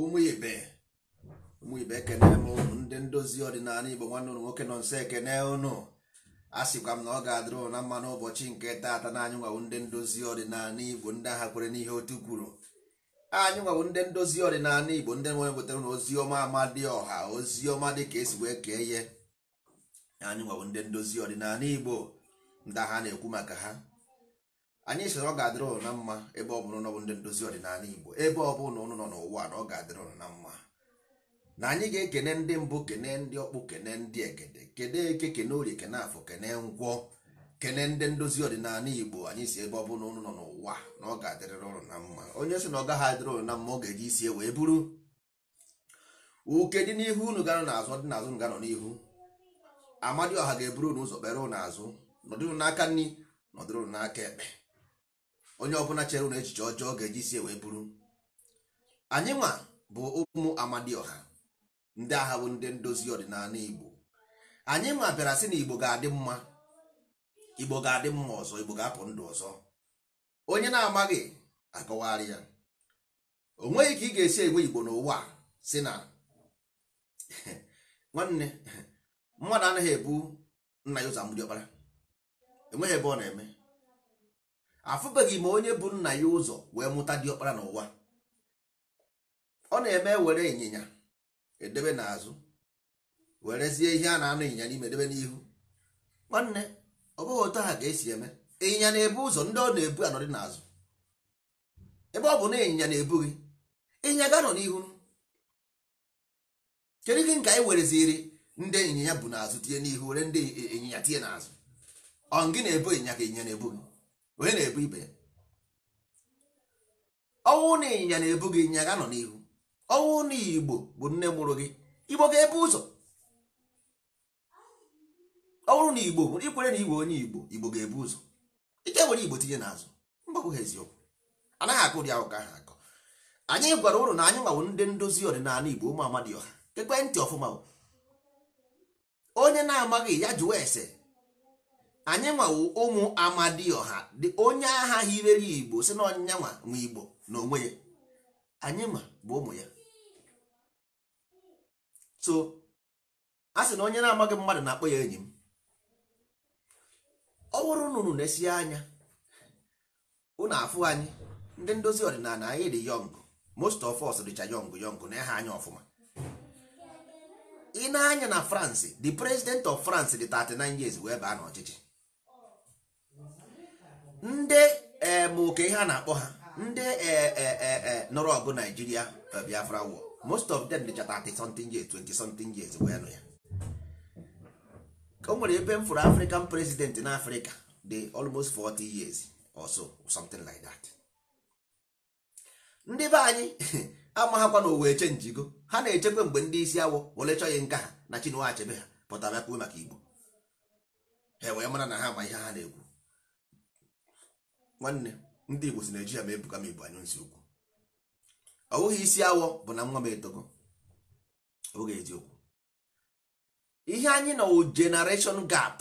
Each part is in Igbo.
ụmụ ibe ụmụ ibe ekene m ụnụ ndị ndozi ọdịnala igbo nwanne ụnụ nwoke nọ nso ekene ụnụ a sịkwa m na ọ ga-adịrị ụna mma n'ụbọchị nke taata na anyị nwawu ndị ndozi ọdịnala igbo ndị agha kwere n'ihe otu kwuru anyị nwawu ndị ndozi ọdịnala igbo ndị nwere wetara na ozi ọma dị ọha ozi ọma dị ka esi wee kee ihe anyị nwawu ndị ndozi ọdịnala igbo ndị agha na-ekwu maka ha anyị sị ọ ga-adịrị na mma ebe ọ bụrụ na ọ bụ ndị ndozi ọdịnala igbo ebe ọ bụrụ na ụnụ nọ n'ụwa na ọ ga-adịrị na mma na anyị ga-ekene ndị mbụ kene ndị ọkpụ kene ndị egede kene eke kene orie kene afọ kene ngwọ kene ndị ndozi ọdịnala igbo anyị si ebe ọ bụrụ na ụnụ nọ n'ụwa na ọ ga adịrị ụnụ na mma onye sị na ọ gaghị adịrị na mma ọ ga-eji isi e wee buru uke dị n'ihu unu ga-anọ n'azụ dị n'azụ ga n'ihu amadioha ga-eburu unu ụzọ kpere ụnụ azụ nọdụrụ n'aka nri nọdụrụ n'aka ekpe onye ọbụla chere na echiche ọjọọ ga-eji sie wee bụrụ anyị nwa bụ ụmụ amadioha ndị agha bụ ndị ndozi ọdịnala igbo anyị nwa bịara sị na igbo ga-adị mma igbo ga-adị mma ọzọ igbo ga-apụ ndụ ọzọ onye na-amaghị akọwagharị ya o nweghị ka ị ga-esi egwe igbo n'ụwa si na nwanne mmadụ anaghị ebu nna ya ụzọ amụdiọkpara enweghị ebe ọ na-eme afụbeghị m onye bụ nna ya ụzọ wee mụta diọkpara n'ụwa ọ na-eme were ịnyịnya edebe n'azụ werezie ihe a na-anụ ịnyịnya n'ime edebe n'ihu nwanne ọ bụghị otu ha ga-esi eme ịnyịnya na-ebu ụzọ ndị ọ na-ebu anọdị n'azụ ebe ọ bụ na ịnyịnya na-ebu gị ịnyịnya ga-anọ n'ihu kedu gị nke anyị ziri ndị ịnyịnya bụ n'azụ tinye n'ihu were ndị ịnyịnya tinye n'azụ ọ gị na-ebu ịnyịnya ka ịnyịnya na-ebu gị onye na-ebu ibe ya ọnwụ na ịnyịnya na-ebu gị ịnyịnya ga n'ihu ọnwụ na igbo bụ nne mụrụ gị igbo ga-ebu ụzọ ọnwụ na igbo ikwere na igbo onye igbo igbo ga-ebu ụzọ ike were igbo tinye n'azụ mgbakwu ha eziokwu anaghị akụ ụdị ahụ ka akọ anyị gwara ụlọ na anyị nwawo ndị ndozi ọdịnala igbo ụmụ amadi ọha ntị ọfụma onye na-amaghị ya jụwa ese anyị nwawo ụmụ amadioha dị onye agha hirere igbo si na nwa ma igbo na onwe ya anyị ma bụ ụmụ ya so a sị na onye na-amaghị mmadụ na-akpọ ya enyi m ọ bụrụ nụrụ na-esi anya unu afụ anyị ndị ndozi ọdịnala anyị dị yong most of us dịcha yọng yọng na eha anya ọfụma ị na-anya na France the president of France dị 39 years wee baa n'ọchịchị ndị moke e, ihe a na-akpọ ha ndị e, e, nọrọ ọgụ naijiria biafra war most of them dịcha 30 something years 20 something years wee nụ ya o nwere ebe m fụrụ african president na africa dị almost 40 years or so something like that ndị be anyị amaghakwa na owe chenjigo ha na-echekwa mgbe ndị isi awọ were chọghị nka ha na chinua achebe ha pụtara akpụwe maka igbo ha wee mara na ha ma ihe ha na-ekwu nwanne ndị igbo si ya ma ebuga m igbo anyụ nsị ukwu ọ bụghị isi awọ bụ na nwa m etogo oge eziokwu ihe anyị nọ wụ generation gap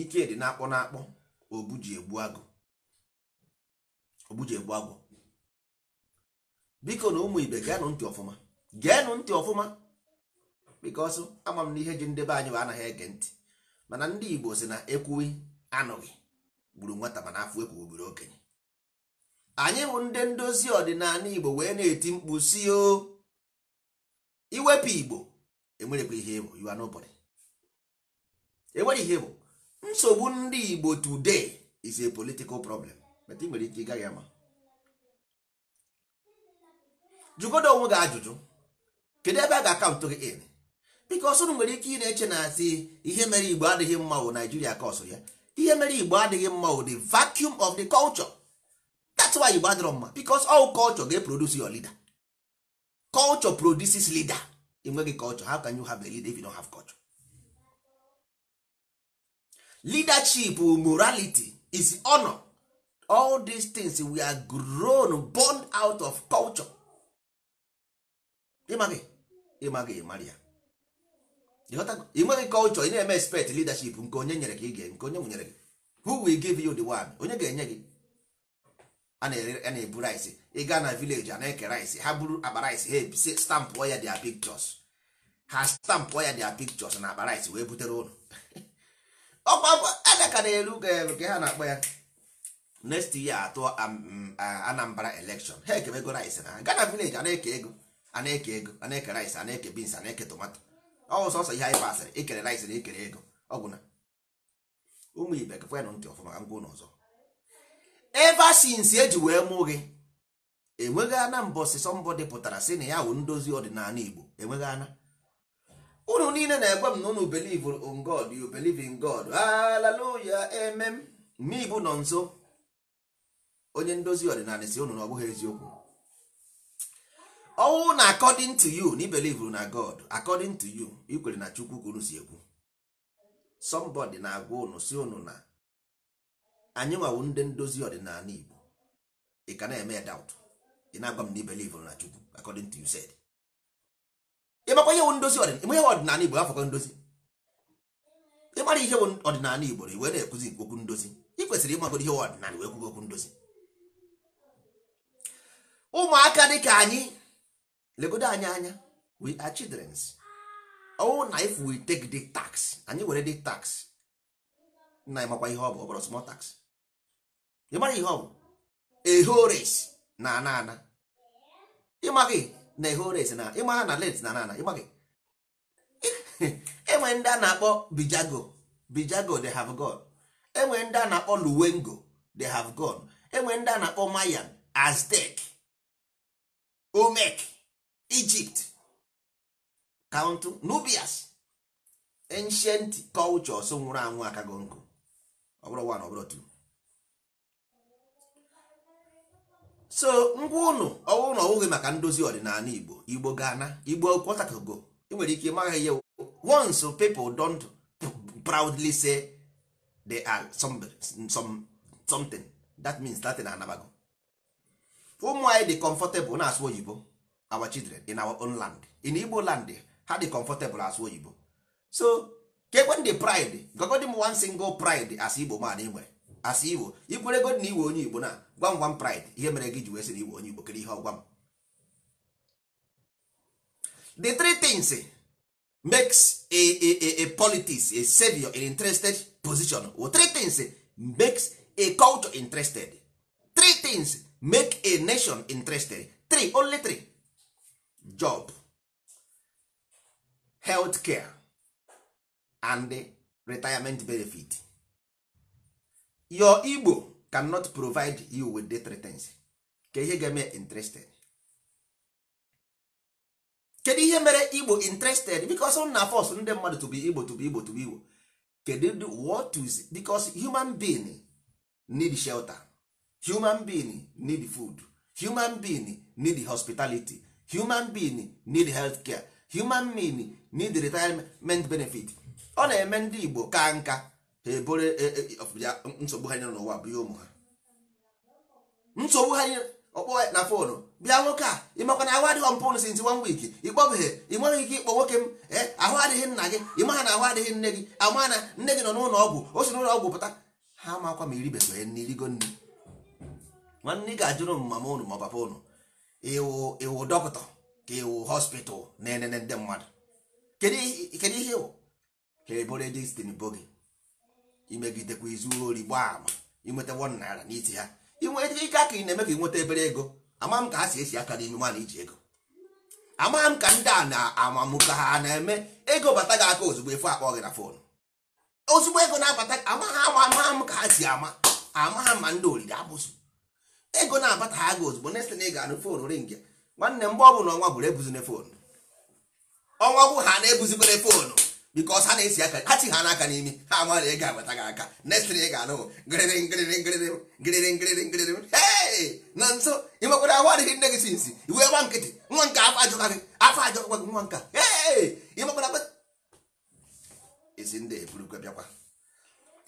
ike dị na-akpọ na-akpọ obuji agụ egbu agụ biko na ụmụ ibe geenụ ntị ọfụma geenụ ntị ọfụma bikọsụ ama m na ihe ji ndebe anyị bụ anaghị ege ntị mana ndị igbo si na ekwughị anụghị gburu nwata mana afọ ekwu obere okenye anyị bụ ndị ndozi ọdịnala igbo wee na-eti mkpu si o iwepụ igbo ihe enwere ihe bụ nsogbu ndị igbo today is a political problem ị nwere ike ị gaghị ama jụgodo onwe gị ajụjụ kedu ebe a ga-akaụntụ gị in biko ọsụrụ nwere ike ị na-eche na asị ihe mere igbo adịghị mma wụ naijiria ka ya ihe mere igbo adịghị mma o the vacuum of the culture that's why igbo adịrọ mma because all culture ga produce your leader culture produces leader enweghị culture how can you have a leader if you don't have culture leadership morality is honor all these things we are grown born out of culture ịmaghị ịmaghị Maria. ya ị nweghị culture ị na-eme expect leadership nke onye nyere ka ị ga nke onye nwunyere gị who will give you the one onye ga-enye gị a na-ebu rice ị gaa na village a na-eke rice ha buru akpa rice ha stampụọ ya dia pictures ha stampụọ ya dia pictures na akpa rice wee butere ụlọ ọkwa adaka na-eru ka ha na-akpọ ya next year atụ um, um, Anambra election ha ekemego rice na ha gaa na a na-eke ego a na-eke ego a na-eke rice a na-eke beans a na-eke tomato Ọ sọsọ ihe anyị pasịrị ikere rice na ikere ego ọgwụna ụmụ ibe gakwenụ ntị ọfụma ka ngwa ụlọ ọzọ ever eji e wee mụ gị enweghị ana mbọsị sọmbọdị pụtara sị na ya wụ ndozi ọdịnala igbo enweghị ana unu niile na-egwe m na unu believe in God you in God hallelujah amen mme nọ nso onye ndozi ọdịnala si unu na ọ bụghị eziokwu ọnwụ na according to you na ibelive na god according to you ikwere na chukwu kwuru unu si ekwu somebody na-agwa unu si unu na anyị nwawu ndị ndozi ọdịnala igbo ị ka na-eme doubt ị na-agwa m na ibelive na chukwu according to you said ịmakwa ihe ndozi ọdịnala igbo afọkọ ndozi ịmara ihe ọdịnala igbo iwe na-ekwuzi okwu ndozi ị kwesịrị ịmagodo ihe ọdịnala wee kwugo okwu ndozi ụmụaka dị ka anyị legodo anyị anya we are childrens ọnwụ oh, na if we take the tax anyị were the tax na anyị makwa ihe ọ bụ ọ bụrụ small tax ị mara ihe ọ bụ ehores na ana ana ịmaghị na ehores na ịmaha na let na ana ana ịmaghị enwe ndị a na-akpọ bijago bijago they have gone enwe ndị a na-akpọ luwengo they have gone enwe ndị a na-akpọ mayan aztec omek Egypt count nubias ancient cultures nwụrụ anwụ aka nkụ ọ bụrụ one ọ so ngwa ụnụ ọwụ na ọwụghị maka ndozi ọdịnala Igbo Igbo gana Igbo kwọtakogo ị nwere ike ịmaghị ihe once people don't proudly say they are some, some, something that means Latin anabago ụmụ anyị dị comfortable na-asụ oyibo our children in our own land in igbo land ha dey comfortable as oyibo so kekwen the pride gogodi m one single pride as igbo man ị as igbo ikwere god na iwe onye igbo na gwa gwam pride ihe mere gị ji wee sị iwe onye igbo kere ihe ọgwa m the three things makes a, a, a, a politics a savior an interested position well, three things makes a culture interested three things make a nation interested three only three job health care and retirement benefit your igbo cannot provide you with the things ka ihe ga-eme interested kedu ihe mere igbo interested because na force ndị mmadụ to be igbo to be igbo to be igbo kedu what is because human being need shelter human being need food human being need hospitality human being need health care human being need retirement benefit ọ na-eme ndị igbo ka nka ha ebore e, e, e, nsogbu ha n'ụwa bụ ihe ụmụ ha nsogbu ha ọkpọ na fonu bịa nwoke a ịmakwa na ahụ adịghị mpụnụ sinsi one week ịkpọbeghị ị nweghị ike ịkpọ nwoke m ahụ adịghị nna gị ịmaha na ahụ adịghị nne gị ama na nne gị nọ n'ụlọ ọgwụ o si n'ụlọ ọgwụ pụta ha makwa ma iribeghị nne irigo nne nwanne ị ga-ajụrụ m mama ụnụ ma ọ papa ụnụ iwu iwu dọkịta ka iwu hospital na-enene ndị mmadụ kedu ihe iwu ka ebore destin bogi imegidekwa izu ori gbaa ama inweta wọn naira n'iti ha inweta ike aka ị na-eme ka ị nweta ebere ego ama m ka ha si esi aka n'ime mana iji ego ama m ka ndị a na-amamụ ka ha na-eme ego bata gị aka ozugbo efu akpọ gị na fon ozugbo ego na-abata ama ha ama m ka ha si ama ama ha ma ndị oriri abụzụ ego na-abata ha gị ozugbo next na ị ga-anụ foonu ring ya nwanne mgbe ọ bụla ọnwa bụrụ ebuzine foonu ọnwa bụ ha na-ebuzikwere foonu bikos ha na-esi aka ha chi ha n'aka n'imi ha amara ego agbata gị aka next na ị ga-anụ ngịrịrị ngịrịrị ngịrịrị ngịrịrị ngịrịrị ngịrịrị hei na nso ị nwekwara ahụ adịghị nne gị sinsi iwe gba nkịtị nwa nke afọ ajọka gị afọ ajọkwa gị nwa nka hei ị ezi isi ndị eburukwe bịakwa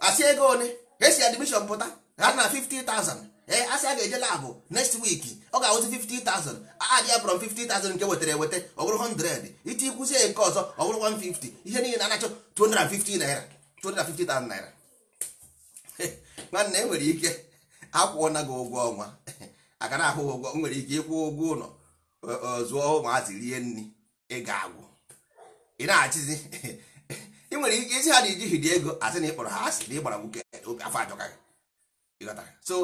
asị ego one esi admishọn pụta ha na 50,000 ee eh, asị a ga-eje labụ next week ọ ga-awụzi 50,000 adị ya from 50,000 nke wetara eweta ọ bụrụ 100 iti ikwụzie nke ọzọ ọ bụrụ 150 ihe niile na-anachọ 250 naira 250,000 naira nwanne nwere ike akwụọna gị ụgwọ ọnwa aka na-ahụ ụgwọ nwere ike ịkwụ ụgwọ ụlọ e, e, zụọ ụmụazị rie nri ịga ga-agwụ ị na-achịzi ị nwere ike isi ha na ijighiri ego asị na ịkpọrọ ha asị na ịgbara nwoke obi afọ ajọka gị so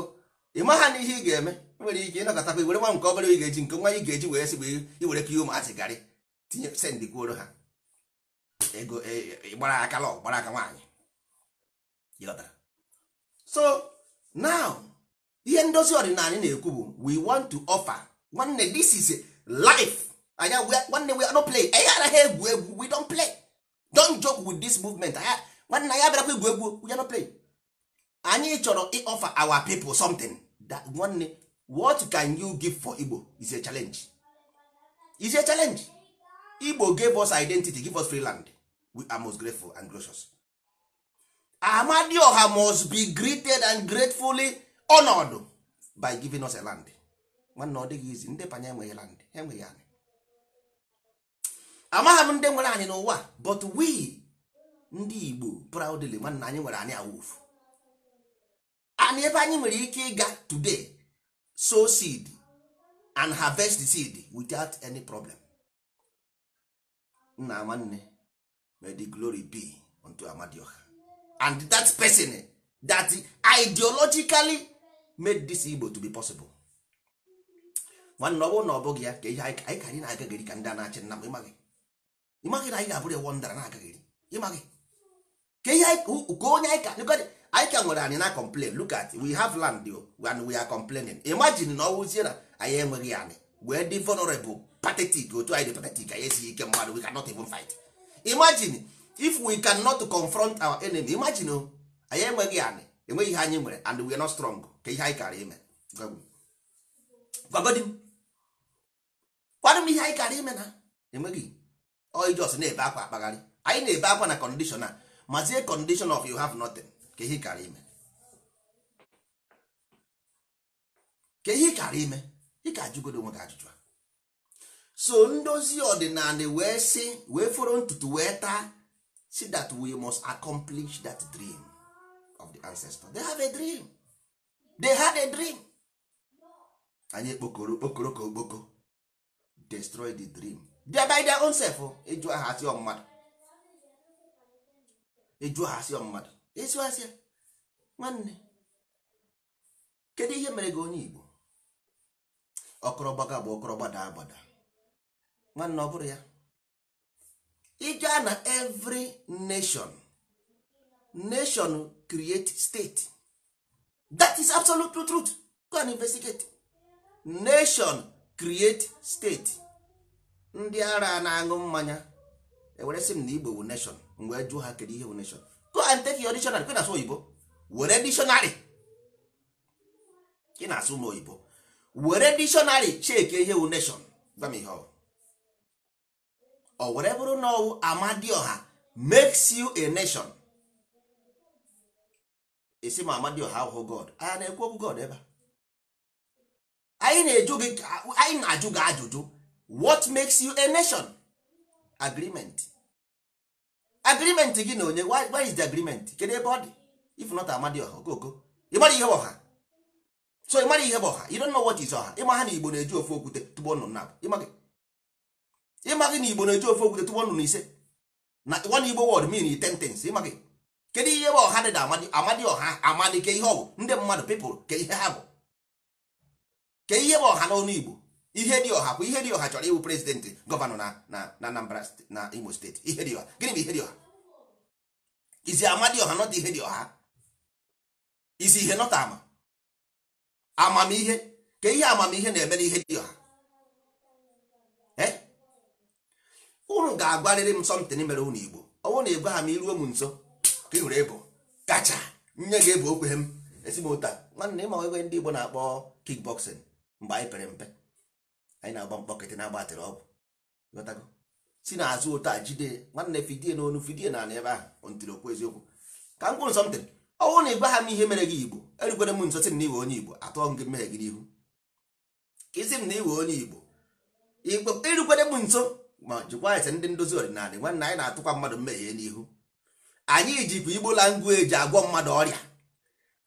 ị ma ha na ihe ị ga-eme nwere ike ịnọkọtakwa were nwa nke obere ị ga-eji nke nwa ị ga-eji wee sị bụ iwere ka ihe ụmụazị garị tinye sendị kwuoro ha ego e, e, gbara aka lọ gbara aka nwaanyị so now ihe ndozi ọdịnala na-ekwu bụ we want to offer nwanne this is life anya nwanne we don't play anyị anaghị egwu egwu we don't play don't joke with this movement nwanne anyị abịarakwa egwu egwu we don't play anyị chọrọ ịofa our people something that nwanne what can you give for igbo is a challenge is a challenge igbo gave us identity give us free land we are most grateful and gracious amadioha must be greeted and gratefully honored by giving us a land nwanne ọ dịghị izi ndị panye enweghị land ha enweghị anyị amaghị m ndị nwere anyị n'ụwa but we ndị igbo proudly nwanne anyị nwere anyị awufu and ebe anyị nwere ike ịga today sow seed and harvest the seed without any problem nna nwanne may the glory be unto amadioha and that person eh, that ideologically made this Igbo to be possible nwanne ọ bụrụ na ọ bụghị ya ka ihe anyị ka anyị na-agagịrị ka ndị a na-achị nna m ịmaghị ịmaghị na anyị ga-abụrụ ewo ndara na-agagịrị ịmaghị ka ihe ka onye anyị ka anyị ka nwere anyị na complain look at we have land oh, and we are complaining imagine na ọwụzie na anyị enweghị anyị wee dị vulnerable pathetic otu anyị dị pathetic anyị esighị ike mmadụ we cannot even fight imagine if we cannot confront our enemy imagine o oh, anyị enweghị anyị enweghị ihe anyị nwere and we are not strong ka ihe anyị kara ime gwagodi m kwadụ m ihe anyị kara ime na enweghị oijos na-ebe akwa akpagharị anyị na-ebe akwa na condition a mazie condition of you have nothing ka ihe kara ime ka ihe kara ime ị ka ajụgodo onwe gị ajụjụ a so ndozi ọdịnala wee sị wee fọrọ ntutu wee taa si that we must accomplish that dream of the ancestor they have a dream they had a dream anyị ekpokoro okpokoro ka okpoko destroy the dream they by their own self oh. eju aha asị mmadụ eju aha asị asịa nwanne kedu ihe mere gị onye Igbo ọkọrọgbaga bụ ọkọrọgbada agbada nwanne ọ bụrụ ya ịga na every nation nation create state that is absolute truth go and investigate nation create state ndị ara na-aṅụ mmanya ewere m na Igbo bụ nation mgbe jụọ ha kedu ihe bụ nation go and take your dictionary kwe na-asụ oyibo were dictionary ị na-asụ ụlọ oyibo were dictionary cheke ihe wu nation gwa m ihe ọ were bụrụ na ọwụ amadioha makes you a nation esi ma amadioha ahụhụ god a na-ekwu okwu god ebe anyị na-eju gị anyị na-ajụ gị ajụjụ what makes you a nation agreement agreement gị na onye why is the agreement kedu ebe ọ dị if not amadi ọha okoko ịmara ihe ọha so ịmara ihe bụ ọha you don't know what is ọha ịma ha na igbo na-eji ofe okwute tụgbọ nnụnụ na ịma gị na igbo na-eji ofe okwute tụgbọ nnụnụ ise na one igbo word mean in ten tens ịma gị kedu ihe bụ ọha dị na amadi amadi ọha amadi ke ihe ọ bụ ndị mmadụ people ke ihe ha bụ ke ihe bụ ọha n'ọnụ igbo ihe dị ọha bụ ihe dị ọha chọrọ ịwụ prezidentị gọvanọ na na Anambra na Imo steeti ihe dị ọha gịnị bụ ihe dị ọha izi ama dị ọha nọdụ ihe dị ọha izi ihe nọta ama amamihe ka ihe amamihe na-eme n'ihe dị ọha unu ga-agwarịrị m sọmtin mere unu Igbo ọ bụrụ na ị gwa ha m iruo m nso ka ị hụrụ ebo kacha nye ga-ebu okwe m esi m ụta nwanne ịma ebe ndị Igbo na-akpọ kickboxing mgbe anyị pere mpe anyị na-agba mkpọkịtị na-agbatịrị ọgwụ ghọtago si na azụ otu a jide nwanne fidie n'onu fidie na ala ebe ahụ ntiri okwu eziokwu ka m kwuru sọmtin ọnwụ na ịgwa ha m ihe mere gị igbo erugwere m nso sị m na iwe onye igbo atụọ m gị mmehie gị n'ihu ka isi m na iwe onye igbo igbo erugwere m nso ma jikwa ese ndị ndozi ọdịnala nwanne anyị na-atụkwa mmadụ mmehie n'ihu anyị jikwa igbo langueji agwọ mmadụ ọrịa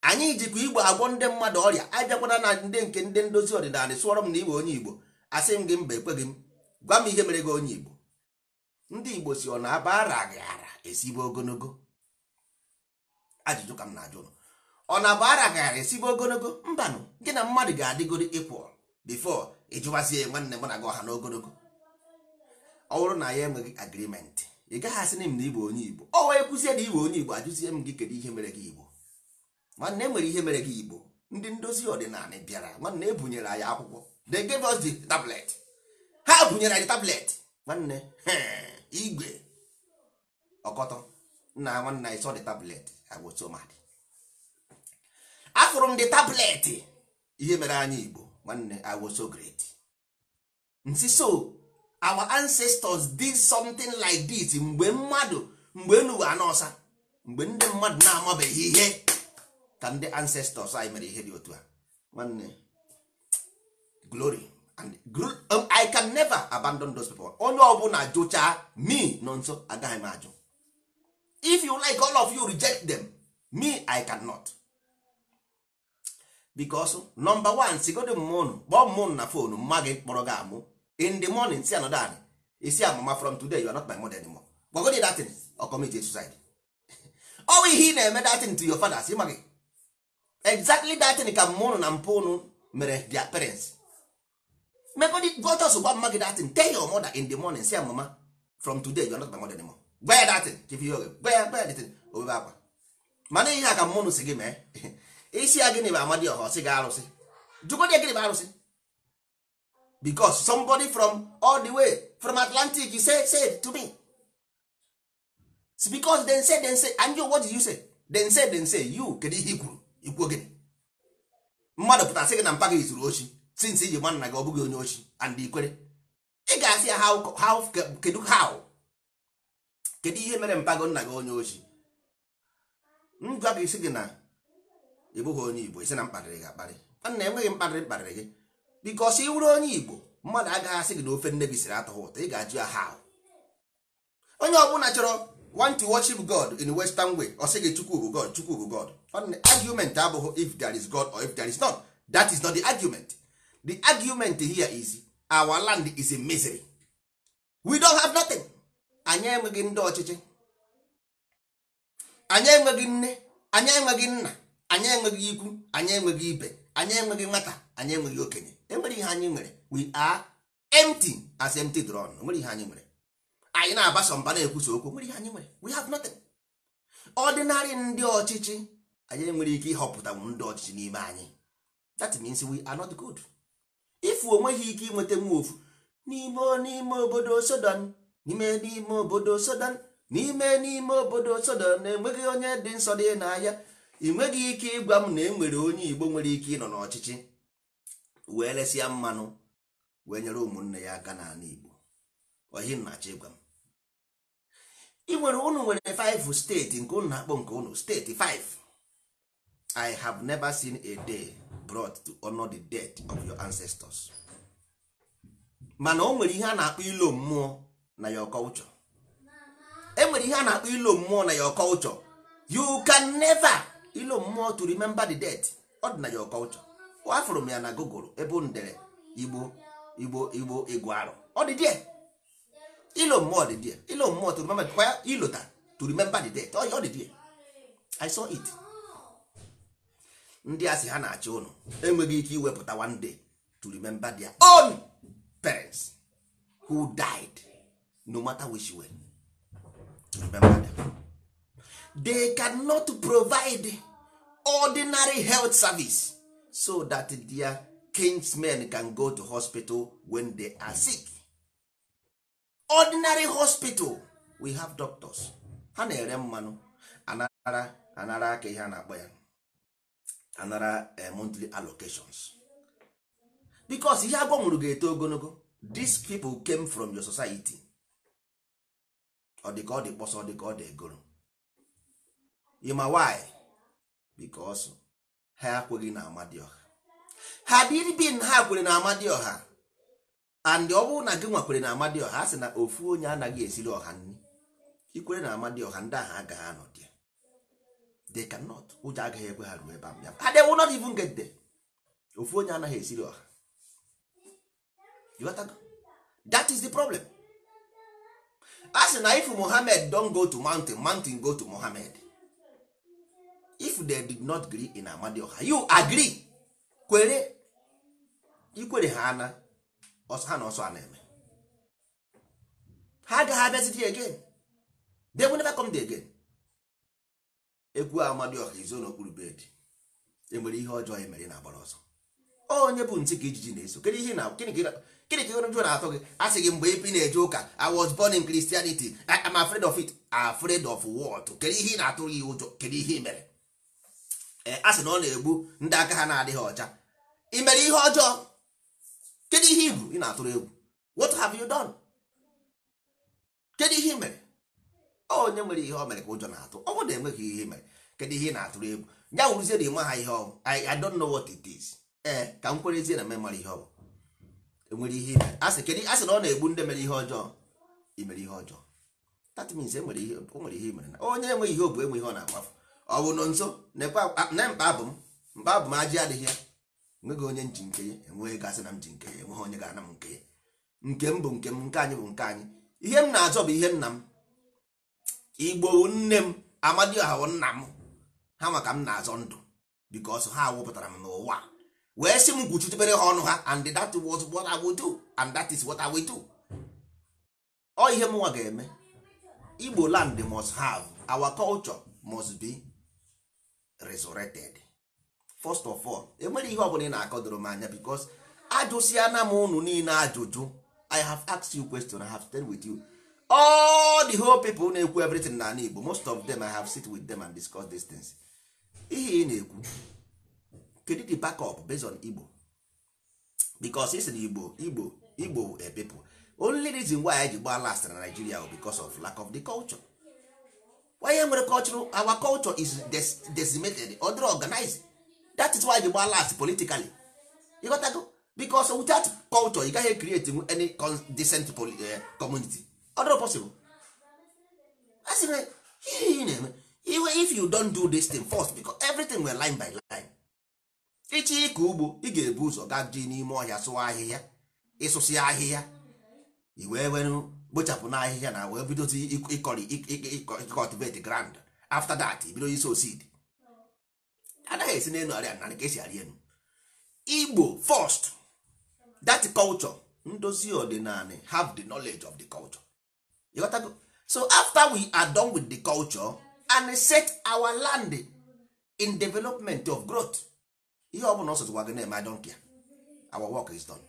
anyị jikwa igbo agwọ ndị mmadụ ọrịa abịakwana na ndị nke ndị ndozi ọdịnala sụọrọ m na iwe onye igbo asị m gị mba ekweghị m gwa m ihe mere gị onye Igbo ndị Igbo si ọ na-abara gị ara esibe ogologo ajụjụ ka m na-ajụ ọ na-abara gị ara esibe ogologo mbanụ gị na mmadụ ga-adịgoro ịkwụ bifo ịjụwazie nwanne mụ na gị ọha n'ogologo ọ bụrụ na ya enweghị agrimenti ị gaghị asị na m na Igbo onye Igbo ọ wee kwụzie na Igbo onye Igbo ajụzie m gị kedu ihe mere gị Igbo nwanne enwere ihe mere gị Igbo ndị ndozi ọdịnala bịara nwanne ebunyere anyị akwụkwọ they gave us the tablet ha bunyere anyị tablet nwanne igwe ọkọtọ nna nwanne anyị sọ the tablet agbosomad afụrụ m the tablet ihe mere anyị igbo nwanne I was so great nsi so our ancestors did something like this mgbe mmadụ mgbe enuwe anọsa mgbe ndị mmadụ na-amabeghị ihe ka ndị ancestors anyị mere ihe dị otu a nwanne glory and um, i can never abandon those people onye ọbụla jụchaa me nọ nso agaghị m ajụ if you like all of you reject them me i cannot because number one sigodo mma kpọọ mma na fonu mma gị kpọrọ gị amụ in the morning si anọda anyị isi amụma from today you are not my mother anymore gbagodi datin or commit suicide ọwụ ihe ị na-eme datin to your fathers ịma gị exactly datin ka mmụnụ na mpa unu mere their parents megodi go ọsọ gwa mma gị datin tell your mother in the morning say mama from today you are not my mother anymore gwa ya datin chifi oge gwa ya gwa ya datin obebe akwa mana ihe a ka oh, mmanụ si gị mee isi ya gịnị bụ amadi ọha ọsị gị arụsị jụgodi ya gịnị bụ arụsị because somebody from all the way from atlantic you say say to me It's because then say then say and you what did you say then say then say you kedu ihe i kwuru ikwuo gịnị mmadụ pụtara sị gị na mpa gị zuru ochi since iji gba nna gị ọ bụghị onye ochi and ikwere ị ga-asị ya how kedu how kedu ihe mere mpago nna gị onye ochi ngwa gị si gị na ị bụghị onye igbo isi na mkparịrị gị akparị nna enweghị mkparịrị mkparịrị gị bikọsi ị wụrụ onye igbo mmadụ agaghị asị gị na ofe nne gị siri atọghị ụtọ ị ga-ajụ ya how onye ọbụla chọrọ want to worship God in western way ọ sị gị chukwu bụ God chukwu bụ God argument abụghị if there is God or if there is not that is not the argument the argument here is our land is a misery we don't have nothing anyị enweghị ndị ọchịchị anyị enweghị nne anyị enweghị nna anyị enweghị ikwu anyị enweghị ibe anyị enweghị nwata anyị enweghị okenye enwere ihe anyị nwere we are empty as empty drone nwere ihe anyị nwere anyị na-agbasa mba na-ekwusa okwu nwere ihe anyị nwere we have nothing ordinary ndị ọchịchị anyị enwere ike ịhọpụta ndị ọchịchị n'ime anyị that means we are not good. ifu onweghị ike inweta nwa ofu n'ime n'ime obodo sodan n'ime n'ime obodo sodan n'ime n'ime obodo sodan na-enweghị onye dị nsọ dị n'ahịa ị nweghị ike ịgwa m na enwere onye igbo nwere ike ịnọ n'ọchịchị wee lesịa mmanụ wee nyere ụmụnne ya aka n'ala igbo ohi nnachi ịgwa m ị nwere ụnụ nwere 5 steeti nke ụnụ na-akpọ nke unu steeti 5 i have never seen a day brought to honor the death of your ancestors mana o nwere ihe a na-akpọ ilo mmụọ na ya culture e nwere ihe a na-akpọ ilo mmụọ na ọkọ culture you can never ilo mmụọ to remember the death ọ dị na your culture afụrụ m ya na gogoro ebe ndere igbo igbo igbo igbo arụ ọ dị die ilo mmụọ dị ilo mmụọ to remember to remember the death ọ dị die i saw it ndị asị ha na-achị ụnụ enweghị ike iwepụta one day to remember their own parents who died no matter which way remember them. they cannot provide ordinary health service so that their kinsmen can go to hospital when they are sick ordinary hospital we have doctors ha na-ere mmanụ anara anara aka ihe a na-akpọ ya anara eh, montly allocations because ihe agbanwuru ga-eto ogologo these people came from your society ọ dị ka ọ dị kpọsọ ọ dị ka ọ dị egoro ịma why because ha ekweghị na ọha. ha dịribin ha kwere na ọha and ọ bụrụ na gị nwakwere na ọha a sị na ofu onye anaghị esiri ọha nri ikwere na ọha ndị ahụ agaghị anọdị they cannot ụjọ agaghị ekwe ha ruo ebe ahụ ha they will not even get there ofu onye anaghị esiri ọha that is the problem a sị na if mohammed don go to mountain mountain go to mohammed if they did not gree in amadi ọha you agree kwere ikwere ha ana ha na ọsọ a na-eme ha agaghị abịaziti again they will never come there again egwu amadioha izo n'okpuru bedị enwere ihe ọjọọ ya e mere ị na-agbara ọsọ onye bụ ntị ka ijiji na-eso gịnị ka jụ na-atọ gị a sị gị mgbe ị na-eje ụka I was born in Christianity am afraid of it afraid of what kedu ihe ị na-atụ gị ụjọ kedu ihe ị mere e, a sị na ọ na-egbu ndị aka ha na-adịghị ọcha ị mere ihe ọjọọ kedu ihe ị bụ ị na-atụrụ egwu what have you done kedu ihe ị mere onye nwere ihe o mere ka ụjọ na-atụ ọ bụrụ na enweghị ihe mere kedu ihe ị na-atụrụ egwu ya wụrụzie na ịma ha ihe ọbụ I don't know what it is ee ka m ezie na memara ihe ọbụ enwere ihe ime asị kedu asị na ọ na-egbu ndị mere ihe ọjọọ imere ihe ọjọọ that means enwere ihe o nwere ihe imere na onye enweghị ihe obu enwe ihe ọ na-agbafu ọ bụ nọ nso na mkpa bụ m mkpa bụ m ajị adịghị ya enweghị onye nji nke ya enweghị gasị na m ji nke enweghị onye ga-ana m nke ya nke m bụ nke m nke anyị bụ nke anyị ihe m na-achọ bụ ihe nna m igbo nne m amadioha nna m ha maka m na-azọ ndụ because ha wụpụtara m n'ụwa wee si m kwuchitebere ha ọnụ ha and that was what I would do and that is what I will do ọ ihe mụnwa ga-eme igbo land must have our culture must be resurrected first of all enwere ihe ọbụla ị na-akọdoro m anya because ajụsịana m unu niile ajụjụ I have asked you question I have stayed with you all the whole people na-ekwu everything na igbo most of them i have sit with them and discuss these things ihe ị na-ekwu kedu the backup based on igbo because is na igbo igbo igbo e people only reason why I ji gbaa last na nigeria bụ because of lack of the culture why nwere culture our culture is decimated other organized that is why ji gba last politically ịghọtago because without culture you gaghị create any decent eh, community ọdụrụ possible a sị na ihe ị na-eme iwe if you don't do this thing first because everything were line by line ịchị ịkọ ugbo ị ga-ebu ụzọ gaa dị n'ime ọhịa sụwa ahịhịa ịsụsị ahịhịa i wee were gbochapụ na ahịhịa na wee bidozi ịkọrị cultivate grand after that bido iso seed anaghị esi n'elu arịa narị ka esi arị elu igbo first that culture ndozi ọdịnala have the knowledge of the culture ịghọtago so after we are done with the culture and set our land in development of growth ihe ọ bụla ọsọtụwa gị na-eme adonkia our work is done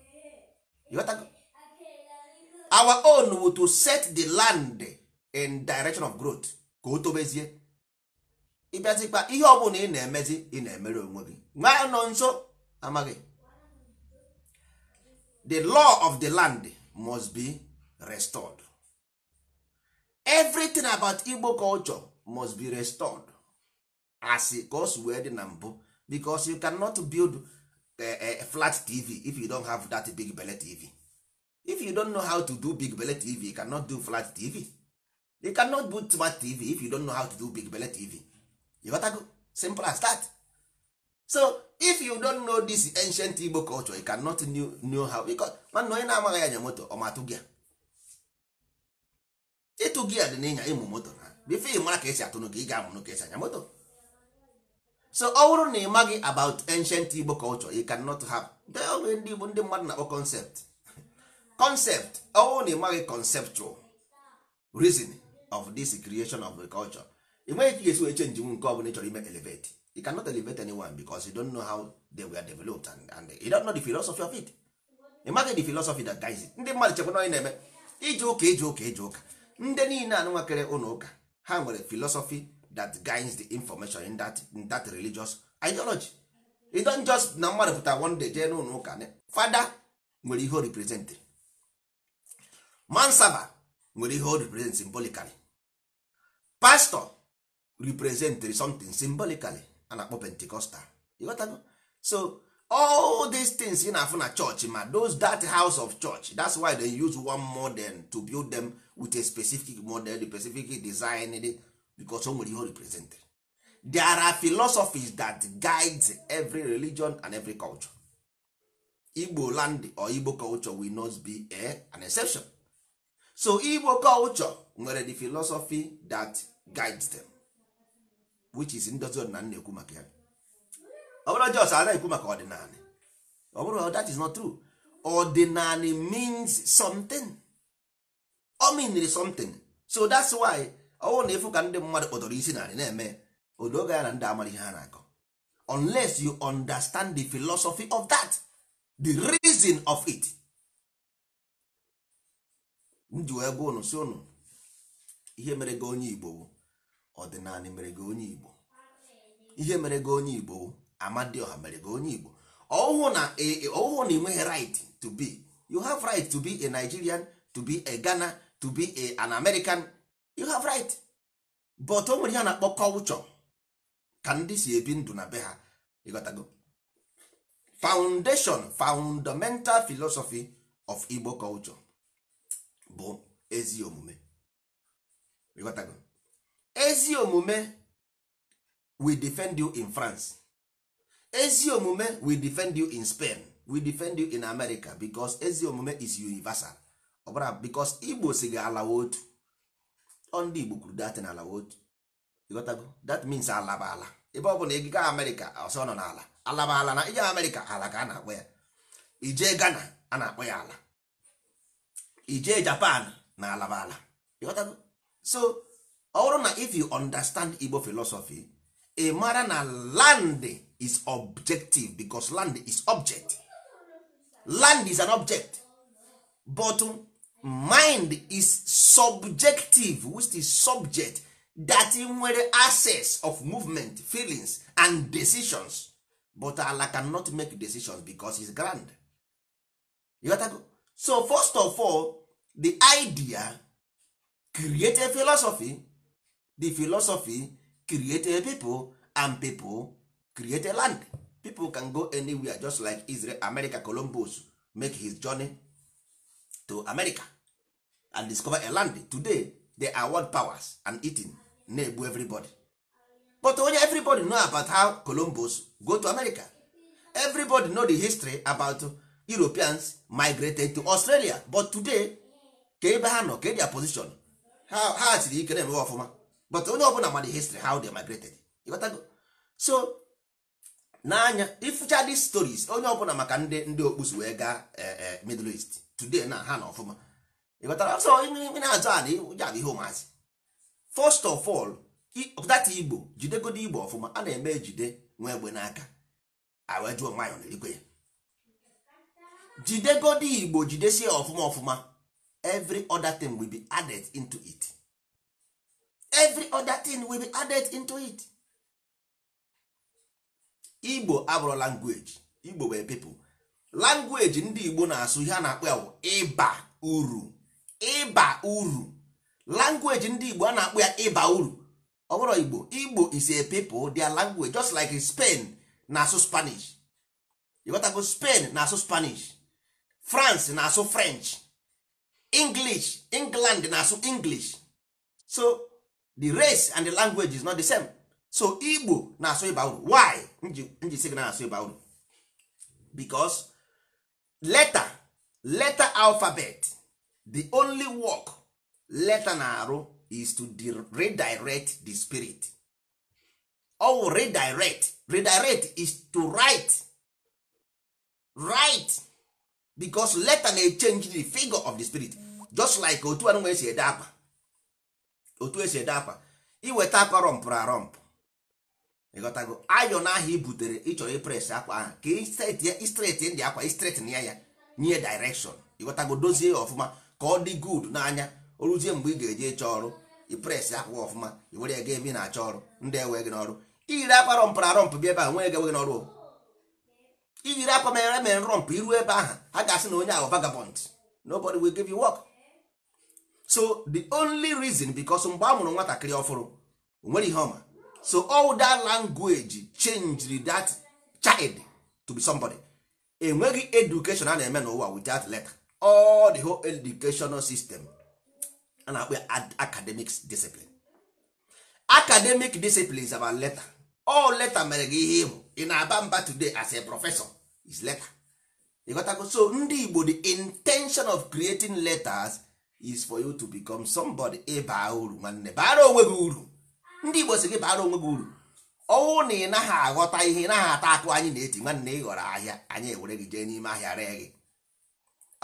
ịghọtago our own wu to set the land in direction of growth ka o tobezie ịbịazikwa ihe ọ na ị na-emezi ị na-emere onwe gị nwa nọ nso amaghị the law of the land must be restored everything about igbo culture must be restored as ka o si wee dị na mbụ because you cannot build a eh, eh, flat tv if you don't have that big belle tv if you don't know how to do big belle tv you cannot do flat tv you cannot build smart tv if you don't know how to do big belle tv you better go simple as that so if you don't know this ancient igbo culture you cannot know how because nwanne onye na-amaghị anya moto ọ matụ gị ịtụ gia dị n'ịnya ịmụ moto na bifo ị mara ka esi atụ gị ị ga-amụnụ ka esi anya moto so ọ bụrụ na ị maghị about ancient Igbo culture you cannot have oge ndị Igbo ndị mmadụ na-akpọ concept concept ọ bụrụ na ị maghị conceptual reason of this creation of a culture ị nweghị ka ị ga-esi wee change nke ọ bụla ị chọrọ ime elevate you cannot elevate anyone because you don't know how they were developed and, and you don't know the philosophy of it ị maghị the philosophy that guides ndị mmadụ chekwa na onye na-eme ije ụka ije ụka ije ụka ndị niile anụnwakere ụlọ ụka ha nwere philosophy that guides the information in that, in that religious ideology you just na mmadụ pụta one day jee n'ụlọ ụka fada nwere ihe o represent mansaba nwere ihe o represent symbolically pastor represent something symbolically a na-akpọ pentecostal all these things ị na-afụ na church ma those that house of church that's why they use one model to build them with a specific model the specific design because o nwere ihe represent there are philosophies that guides every religion and every culture igbo land or igbo culture will not be a, an exception so igbo culture nwere the philosophy that guides them which is ndozi ọdịna ekwu maka ya ọ bụrụ jos a na-ekwu maka ọdịnala ọ bụrụ oh, that is not true ọdịnala means something ọ meanri something so that's why ọwụ na ịfụ ka ndị mmadụ kpọtọrọ isi narị na-eme oge ya na ndị amara ihe ha na-akọ unless you understand the philosophy of that the reason of it nji wee gwa unu si unu ihe mere gị onye igbo ọdịnala mere gị onye igbo ihe mere gị onye igbo ọha mere gị onye igbo ọhụụ na e, e, ịnweghị right to be you have right to be a nigerian to be a ghana to be a, an american you have right but o nwere ihe a na-akpọ kọlchọ ka ndị si ebi ndụ na be ha ịghọtago foundation fundamental philosophy of igbo culture bụ ezi omume ịghọtago ezi omume we defend you in france ezi omume we defend you in Spain we defend you in America because ezi omume is universal ọbara because Igbo si ga alawa otu ndị Igbo kwuru dat na alawa otu that means alaba ala ebe ọ bụla ị gaa America ọsọ nọ n'ala alaba ala na ije America ala ka a na-akpọ ya ijee Ghana a na-akpọ ya ala ije Japan na alaba ala ịghọtago so ọ bụrụ na if you understand Igbo philosophy ị mara na land is objective because land is object land is an object but um, mind is subjective which is subject that nwere access of movement feelings and decisions but Allah cannot make decisions because is grand so first of all the idea create a philosophy the philosophy create a people and people create a land people can go anywhere just like israel america columbus make his journey to america and discover a land today they are world powers and eating na-egbu everybody but onye everybody know about how columbus go to america everybody know the history about europeans migrated to australia but today ka ebe ha nọ ka their position ha siri ike na-emewe ọfụma but onye ọbụla ma the history how they migrated so n'anya ifucha d stories onye ọbụla maka ndị ndị okpusu wee gaa eh, eh, middle east today na ha na ọfụma ịbatara ọsọ na-azụ ala ụja bụ ihe ụmụazị first of all data igbo jidegodi igbo ọfụma a na-eme jide nwa egbe n'aka ya igbo jidesie ọfụma ọfụma every other be added into igbo abụrụ langweji igbo wee pipụl langweji ndị igbo na-asụ ihe a na-akpọ ya ịba uru ịba uru langweji ndị igbo a na-akpọ ya ịba uru ọ bụrụ igbo igbo is a people their language just like spain na-asụ spanish ịghọtago spain na-asụ spanish france na-asụ french english england na-asụ english so the race and the language is not the same so igbo na-asụ ịba uru why nji sị gị na-asụ ịba uru because letter letter alphabet the only work letter na-arụ is to redirect the spirit ow redirect redirect is to write write because letter na change the figure of the spirit just like otu anụnwa esi ede akpa otu esi ede akpa iweta akpa rọmpụrụ arọmpụ ịghọtago ayọn ahụ aha ibutere ịchọrọ ipres akwa ahụ ka istreti ndị akwa istreti na ya ya nye direkshọn ịghọtago dozie ya ọfụma ka ọ dị gud n'anya o ruzie mgbe ị ga-eje ịchọ ọrụ ipres akwa ọfụma iwere were ya ga ebe ị na-achọ ọrụ ndị ewe gị n'ọrụ iyiri akwa rọmpụ na rọmpụ bịa ebe ahụ nwee gị n'ọrụ iyiri akwa mere mere rọmpụ iru ebe ahụ ha ga-asị na onye ahụ vagabond nobody will give you work so the only reason because mgbe a mụrụ nwatakịrị ọfụrụ o nwere ihe ọma so all that language changed that child to be somebody enweghị education a na-eme n'ụwa without letter all the whole educational system a na-akpọ academic discipline academic discipline is about letter all letter mere gị ihe ịbụ ị na-aba mba today as a professor is letter ịghọtago so ndị Igbo the intention of creating letters is for you to become somebody ịba uru nwanne bara onwe gị uru ndị igbo si gị bara onwe gị uru ọnwụ na ị naghị aghọta ihe ị naghị ata akụ anyị na-eti nwanne ị ghọrọ ahịa anyị ewere gị jee n'ime ahịa ree gị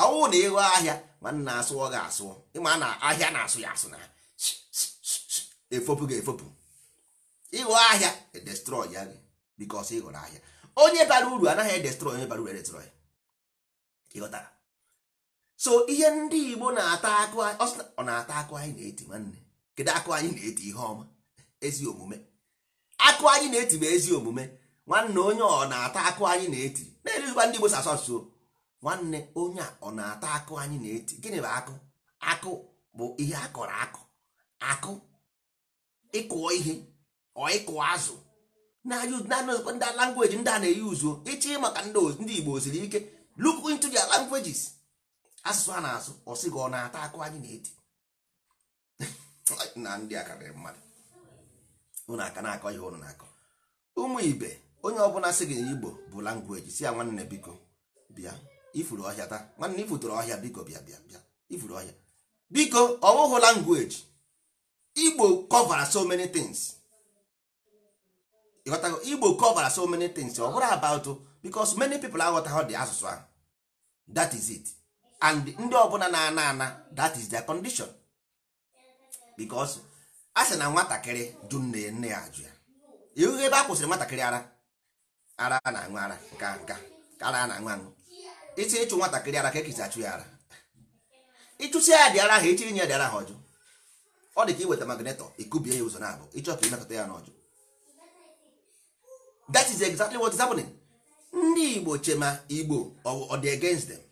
ọnwụ na ịghọ ahịa nwanne asụọ gị asụ ịma na ahịa na-asụ ya asụ na efopụ gị efopụ ịghọ ahịa edestrọy ya gị bikos ị ghọrọ ahịa onye bara uru anaghị edestrọy onye bara uru edestrọy ịghọtara so ihe ndị igbo na-ata akụ ọ na-ata akụ anyị na-eti nwanne kedu akụ anyị na-eti ihe ọma ezi omume akụ anyị na-eti bụ ezi omume nwanne onye ọ na-ata akụ anyị na-eti na-eruzikwa ndị Igbo asụsụ. nwanne onye a ọ na-ata akụ anyị na-eti gịnị bụ akụ akụ bụ ihe a kọrọ akụ akụ ịkụọ ihe ọ ịkụọ azụ na ndị langweji ndị a na-eyi uzuo ịchị maka ndị Igbo siri ike look into their languages asụsụ a na-asụ ọ sị gị ọ na-ata akụ anyị na-eti na ndị a karịrị mmadụ unu aka na-akọ ihe unu na-akọ ụmụ ibe onye ọbụla sị gị igbo bụ langweji si ya nwanne biko bịa ifuru ọhịa taa nwanne ifutụrụ ọhịa biko bịa bịa bịa ifuru ọhịa biko ọ bụghị langweji igbo cover so many things ịghọtago igbo cover so many things ọ bụrụ about because many people aghọtaghị dị asụsụ ahụ that is it and ndị ọbụla na-ana ana that is their condition because a sị na nwatakịrị jụ nne nne ya ajụ ya ihu ebe a kwụsịrị nwatakịrị ara ara a na-aṅụ ara nka nka ara a na-aṅụ aṅụ iti ịchụ nwatakịrị ara ka ekisi achụ ya ara ịchụsi ya dị ara ha echi nye ya ara ha ọjụ ọ dị ka iweta magnetọ ikubie ya ụzọ na abụ ịchọ ka imekọta ya n'ọjụ that is exactly what is happening ndị igbo chema igbo ọ dị against them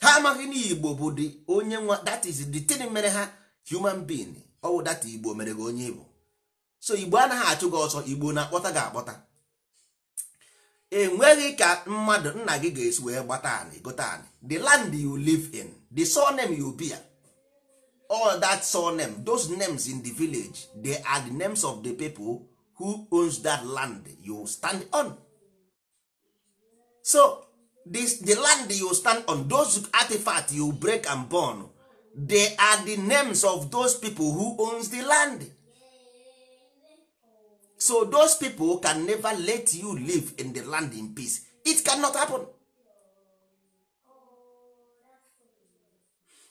ha amaghị na igbo bụ the onye nwa that is the thing mere ha human being ọwụ data igbo mere gị onye igbo so igbo anaghị achụ gị ọsọ igbo na-akpọta gị akpọta enweghị ka mmadụ nna gị ga-esi wee gbata anị gote anị the land you live in the surname you bear all that surname those names in the village they are the names of the people who owns that land you stand on so this, the land you stand on those artifacts you break and burn they are the names of those people who owns the land so those people can never let you live in the land in peace it cannot happen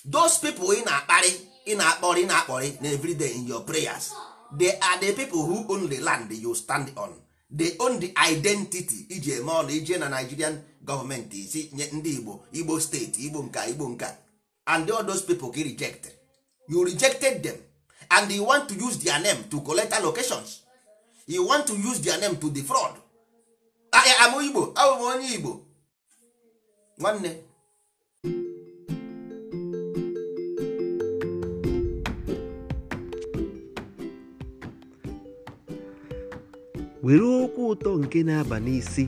those people ị na-akparị ị na-akpọrị ị na-akpọrị na everyday in your prayers they are the people who own the land you stand on they own the identity iji eme ọla ije na Nigerian gọọmenti isi nye ndị Igbo Igbo steeti Igbo nka Igbo nka and all those people get rejected you rejected them and you want to use their name to collect allocations you want to use their name to defraud am ah, igbo abụ ah, m onye igbo nwanne were okwu ụtọ nke na-aba n'isi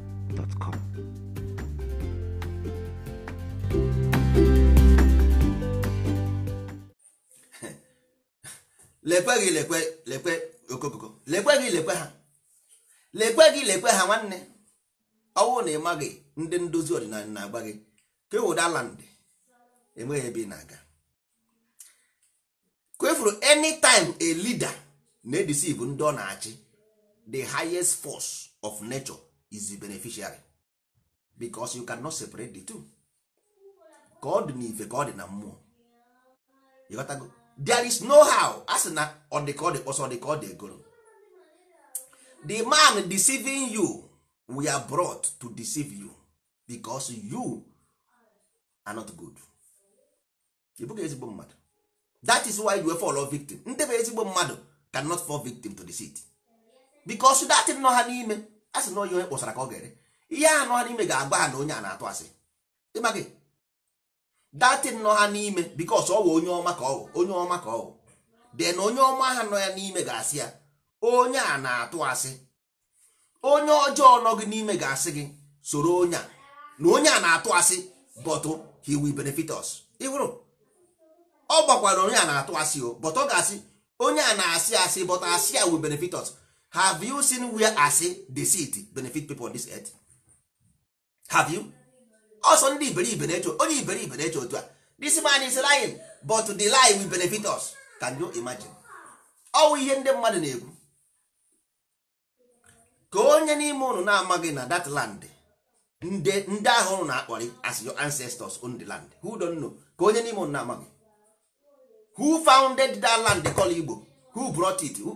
gmail.com. lekwe gị lekwe lekwe okokoko lekwe gị lekwe ha lekwe gị lekwe ha nwanne ọwụwa na ịma gị ndị ndozi ọdịnala na-agba gị ka land enweghị ebe ị na-aga kwefuru anytime a leader na-edisive ndị ọ na-achị the highest force of nature is the beneficiary because you cannot separate the two ka ọ dị n'ife na mmụọ go, there is no how a na ọ dị ka ọ kpọsọ egoro the man deceiving you we are brought to deceive you because you are not good ị bụghị ezigbo mmadụ that is why you were fall victim ndị bụ ezigbo mmadụ cannot fall victim to the deceit because that dị how ha n'ime a sị na onye kpọsara ka ọ ga-ere ihe a nọ n'ime ga-agba ha na onye a na-atụ asị ịma gị datin nọ ha n'ime bikos ọ wụ onye ọma ka ọ onye ọma ka ọ de na onye ọma ha nọ ya n'ime ga-asị ya onye a na-atụ asị onye ọjọọ nọ gị n'ime ga-asị gị soro onye a na onye a na-atụ asị bọtụ he will benefit ịhụrụ ọ gbakwara onye a na-atụ asị o bọtụ ọ ga-asị onye a na-asị asị bọtụ asị ya will benefit have you seen where the deceit benefit people on this earth have you Oso ndị iberibe na-eche onye iberibe na-eche otu a this man is lying but the lie will benefit us can you imagine ọwụ ihe ndị mmadụ na-ekwu ka onye n'ime ụnụ na-amaghị na that land ndị ahụ ụnụ na-akpọrị as your ancestors on the land who don't know ka onye n'ime ụnụ na-amaghị who founded that land call Igbo who brought it who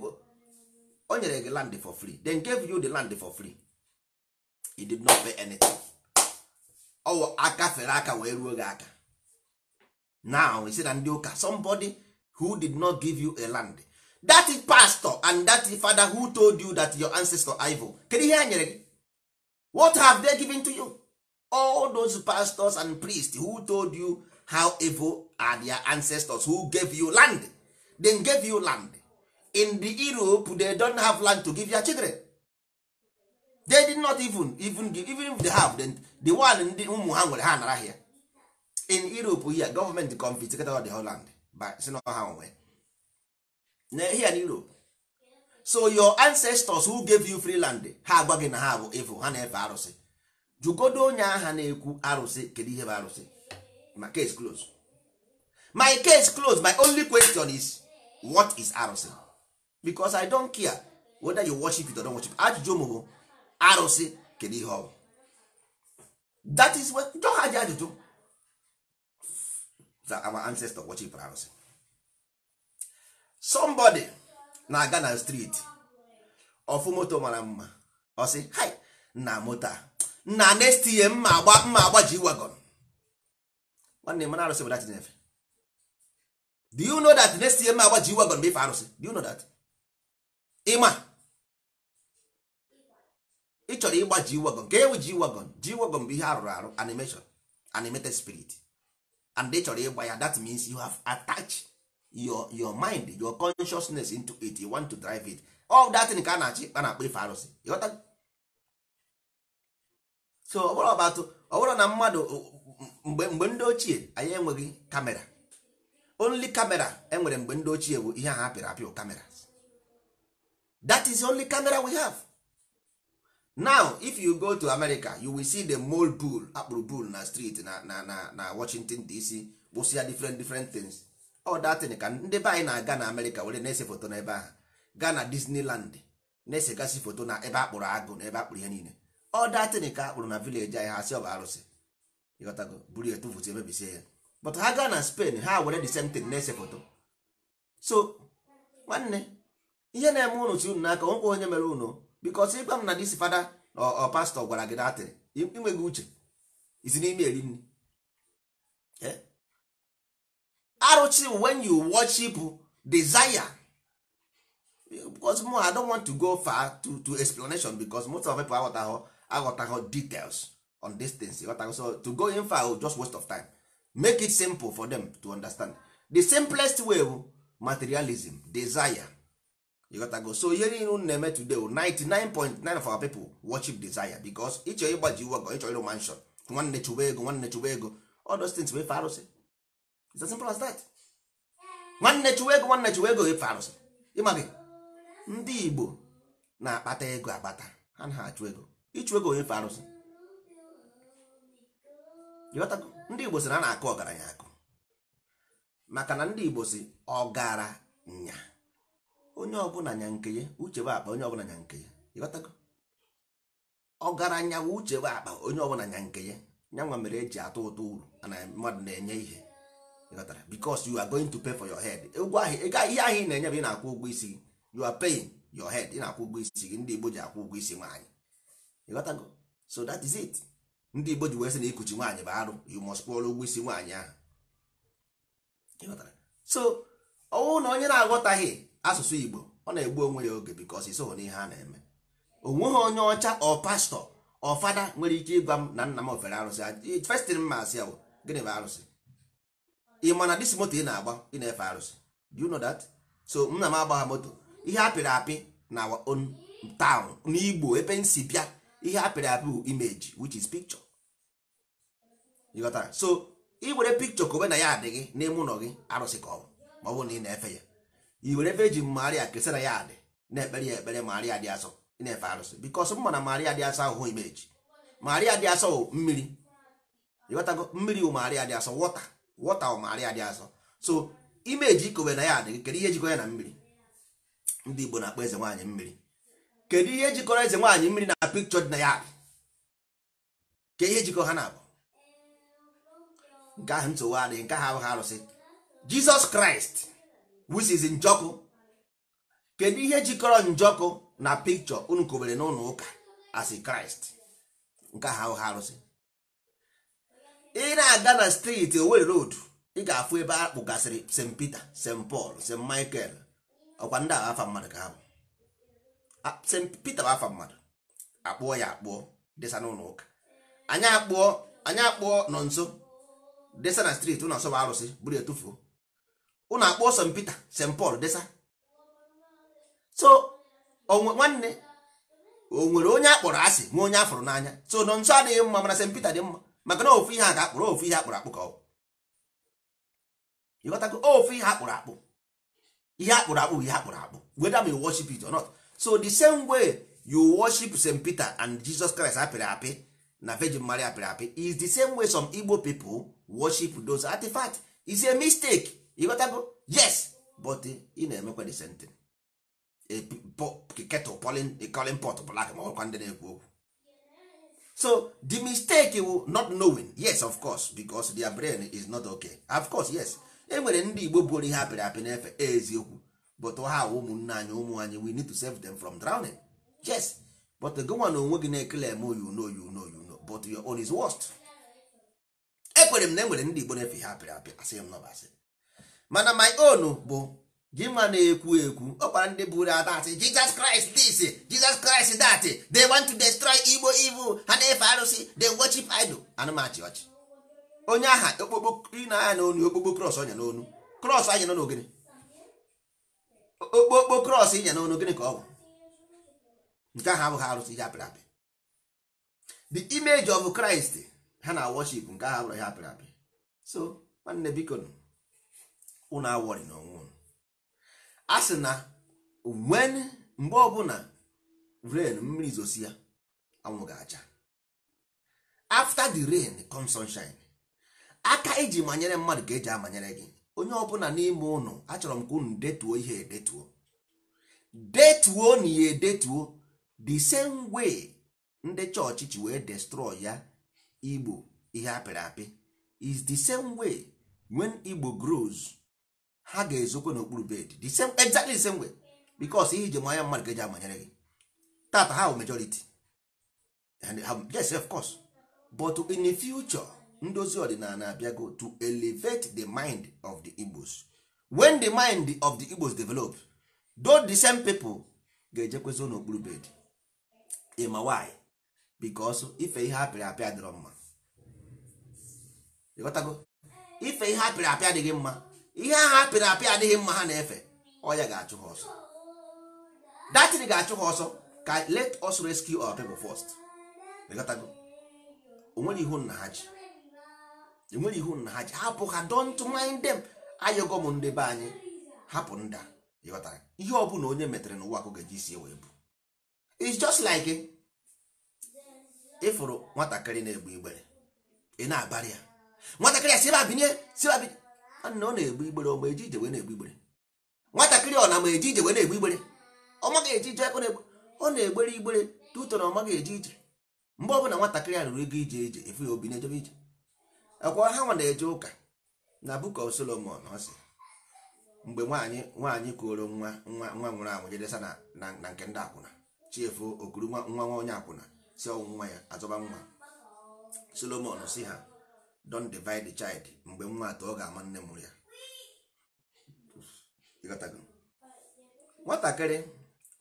o nyere gị land for free then gave you the land for free he did not pay anything ọwụ aka fere aka wee ruo gị aka now isi na ndị ụka somebody who did not give you a land that pastor and that father who told you that your ancestor ivo kedu ihe ha nyere gị what have they given to you all those pastors and priests who told you how evil are their ancestors who gave you land then gave you land in the europe they don't have land to give their children they did not even even give, even if they have the the one ndị ụmụ ha nwere ha nara here in europe here government confiscated the holland land by si na ha nwe here in europe so your ancestors who gave you free land ha agwa gị na ha bụ efu ha na-efe arụsị jugodo onye agha na-ekwu arụsị kedu ihe bụ arụsị my case close my case close my only question is what is arụsị because i don't care whether you worship it or don't worship it. ajụjụ m arụsị kedu ihe ọ that is what jọ ha ji ajụjụ our ancestor worship arụsị somebody na-aga na street ofu moto mara mma ọ sị hi na moto na next year mma agba mma agba ji wagon nwanne mana arụsị bụ dat nefe do you know that next year mma agba ji wagon bụ ife arụsị do you know that ịma ị chọrọ ịgba ji wagon ka ewu ji wagon ji wagon bụ ihe arụrụ arụ animation animated spirit and ị chọrọ ịgba ya that means you have attached your your mind your consciousness into it you want to drive it all that thing ka a na-achị a na-akpọ ife arụsị so ọ bụrụ ọbatụ ọ bụrụ na mmadụ mgbe mgbe ndị ochie anyị enweghị kamera only kamera enwere mgbe ndị ochie bụ ihe ahụ apịrị apịụ kamera that is the only camera we have now if you go to america you will see the mold bull akpụrụ bull na street na na na na washington dc gbụsịa different different things all that thing ka ndị be anyị na-aga na america were na-ese foto n'ebe ahụ gaa na disneyland na gasị foto na ebe akpụrụ agụ na ebe akpụrụ ihe niile all that thing ka akpụrụ na village anyị ha si ọba arụsị ịghọtago buru emebisie but ha gaa na spain ha were the same thing na-ese foto so nwanne ihe na-eme unu si unu n'aka nwekwa onye mere unu bikos ịgwa m na disi fada pastor ọ pastọ gwara gị datịrị inweghị uche isi n'ime eri nri eh? arụchi wen you worship desire because mo i don't want to go far to, to explanation because most of people aghọtaghọ aghọtaghọ details on these things aghọtaghọ so to go in far will just waste of time make it simple for them to understand the simplest way materialism desire go so ihe niile unu na-eme today o 99.9 of our people worship desire because ịchọ ịgbaji iwu ọgọ ịchọ ịrụ mansion nwanne chụwa ego nwanne chụwa ego all those things bụ ife arụsị it's as simple as that nwanne chụwa ego nwanne chụwa ego ife arụsị ịmaghị ndị Igbo na-akpata ego akpata ha na achụ ego ịchụ ego ife arụsị ịghọtago ndị Igbo sị na a na-akụ ọgaranya akụ maka na ndị Igbo si ọgaranya onye ọbụla nya nke ya uche bụ akpa onye ọbụla nya nke ya ịghọtago ọgaranya bụ uche bụ akpa onye ọbụla nya nke ya nyanwa mere eji atụ ụtụ uru na mmadụ na-enye ihe ịghọtara because you are going to pay for your head ụgwọ ahụ ihe ahịa ị na-enye bụ ị na-akwụ ụgwọ isi gị you are paying your head ị na-akwụ ụgwọ isi gị ndị Igbo ji akwụ ụgwọ isi nwaanyị ịghọtago so that is it ndị Igbo ji wee sị na ikuchi nwaanyị bụ arụ you must kwụọrọ ụgwọ isi nwaanyị ahụ ịghọtara so ọnwụ na onye na-aghọtaghị asụsụ igbo ọ na-egbu onwe ya oge because isoghị n'ihe a na-eme onweghị onye ọcha ọ pastọ ọ nwere ike ịgwa m na nna m ofere arụsị festin mma asị ya gịnị bụ arụsị ị ma na dis moto ị na-agba ị na-efe arụsị do you know that so nna m ha moto ihe apịrị apị na on town n'igbo ebe nsi bịa ihe apịrị apị bụ image which is picture you so ị were picture kobe na ya adịghị n'ime ụlọ gị arụsị ka ọ bụ ma ọ bụrụ na ị na-efe ya i were ebe eji maria kesara ya adị na-ekpere ya ekpere maria dị asọ na-efe arụsị bikos m mana maria dị asọ ahụhụ imeji maria dị asọ mmiri ịghọtago mmiri wụ maria dị asọ wọta wọta wụ maria dị asọ so imeji ikowe na ya adị kedu ihe jikọrọ ya na mmiri ndị igbo na-akpọ eze nwaanyị mmiri kedu ihe jikọrọ eze nwaanyị mmiri na pikchọ dị na ya adị ka ihe jikọ ha na-abụ nke ahụ nsogbu adịghị nke ahụ abụghị arụsị jizọs kraịst wisizi njọkụ kedu ihe jikọrọ njọkụ na pikchọ unu kobere n'ụlọ ụka as kraịst nke ha ha arụsị ị na-aga na steeti Owerri road ị ga-afụ ebe a gasịrị st peter st paul st michael ọkwa ndị agha afa mmadụ ka ha bụ st peter bụ afa mmadụ akpụọ ya akpụọ desa n'ụlọ ụka anyị akpụọ anyị akpụọ nọ nso desa na steeti ụlọ nsọ bụ arụsị buru etufuo ụnụ akpọ St Peter St Paul desa so nwanne o nwere onye akpọrọ asị nwe onye afọrọ n'anya so nọ nso adịghị mma mana St Peter dị mma maka na ofu ihe a ga-akpụrụ ofu ihe akpụrụ akpụ ka ọ ịghọtago ofu ihe akpụrụ akpụ ihe akpụrụ akpụ ihe akpụrụ akpụ whether you worship it or not so the same way you worship St Peter and Jesus Christ apịrị apị na Virgin Mary apịrị apị is the same way some Igbo people worship those artifacts is a mistake ịghọtago yes but ị na-emekwa the same thing kettle calling pot black ma ọkwa ndị na-ekwu okwu so the mistake will not knowing yes of course because their brain is not okay of course yes e nwere ndị igbo buoro ihe apịrị apị n'efe eziokwu but ha ụmụnne anyị ụmụ anyị we need to save them from drowning yes but go one onwe gị na-ekele eme oh, you know you know you know but your own is worst ekwere m na e enwere ndị igbo na-efe ihe apịrị apị asị m nọbasị mana my own bụ gị gịnwa na-ekwu ekwu ọ gwara ndị buru ata asị Jesus Christ this jizọs kraịst that they want to destroy Igbo evil ha na-efe arụsị they worship idol anụmachi ọchị onye aha okpokpo na-anya n'onu okpokpo cross ọnya n'onu cross anya n'onu gịnị okpokpo cross ịnya n'onu gịnị ka ọ bụ nke ahụ abụghị arụsị ihe apịrị apị the image of Christ ha na worship nke ahụ abụrụ ihe apịrị apị so nwanne biko unu awọrị n'onwe unu a sị na wen mgbe ọbụla rain mmiri zosi ya anwụ ga-acha after the rain comes sunshine aka iji e manyere mmadụ ka eji amanyere gị onye ọbụla n'ime ụnụ achọrọ m ka unu detuo ihe edetuo detuo na ya edetuo the same way ndị chọọchị ji wee destroy ya igbo ihe apịrị apị is the same way when igbo grows ha ga-ezokwe n'okpuru bed the same exactly the same way because ihe iji manya mmadụ ga-eji amanyere gị tata ha bụ majority and yes of course but in the future ndozi ọdịnala abịago to elevate the mind of the igbos when the mind of the igbos develop though the same people ga-ejekwezo n'okpuru bed ma why because ife ihe apịrị apịa dịrọ mma ife ihe apịrị apịa adịghị mma ihe ahụ apịrị apị adịghị mma ha na-efe ọya ga-achụ ha ọsọ datin ga-achụ ha ọsọ ka let us rescue our people first onwere ihu nna ha ji enwere ihu nna ha ji hapụ ha don't mind them ayọgọ m ndị be anyị hapụ nda ịghọtara ihe ọ bụla onye metere n'ụwa ka ọ ga-eji wee bụ it's just like ịfụrụ nwatakịrị na-egbe igbere ị na-abarị ya nwatakịrị a si ebe a binye si ebe a binye nna ọ na-egbu igbere ọ ma eji ije wee na-egbu igbere nwatakịrị ọ na ma eji ije wee na-egbu igbere ọ maghị eji ije ọ na-egbere igbere tutọrọ ọ maghị eji ije mgbe ọbụla nwatakịrị a rụrụ ego ije ije efu ya obi na-ejebe ije akwa ha nwa na-eje ụka na Book of Solomon si mgbe nwaanyị nwaanyị kuoro nwa nwa nwa nwụrụ anwụ jedesa na nke ndị akwụna chiefu okuru nwa nwa onye akwụna si ọnwụ nwa ya azọba nwa Solomon si ha don divide the child mgbe nwa atọ ọ ga-ama nne mụrụ ya nwatakịrị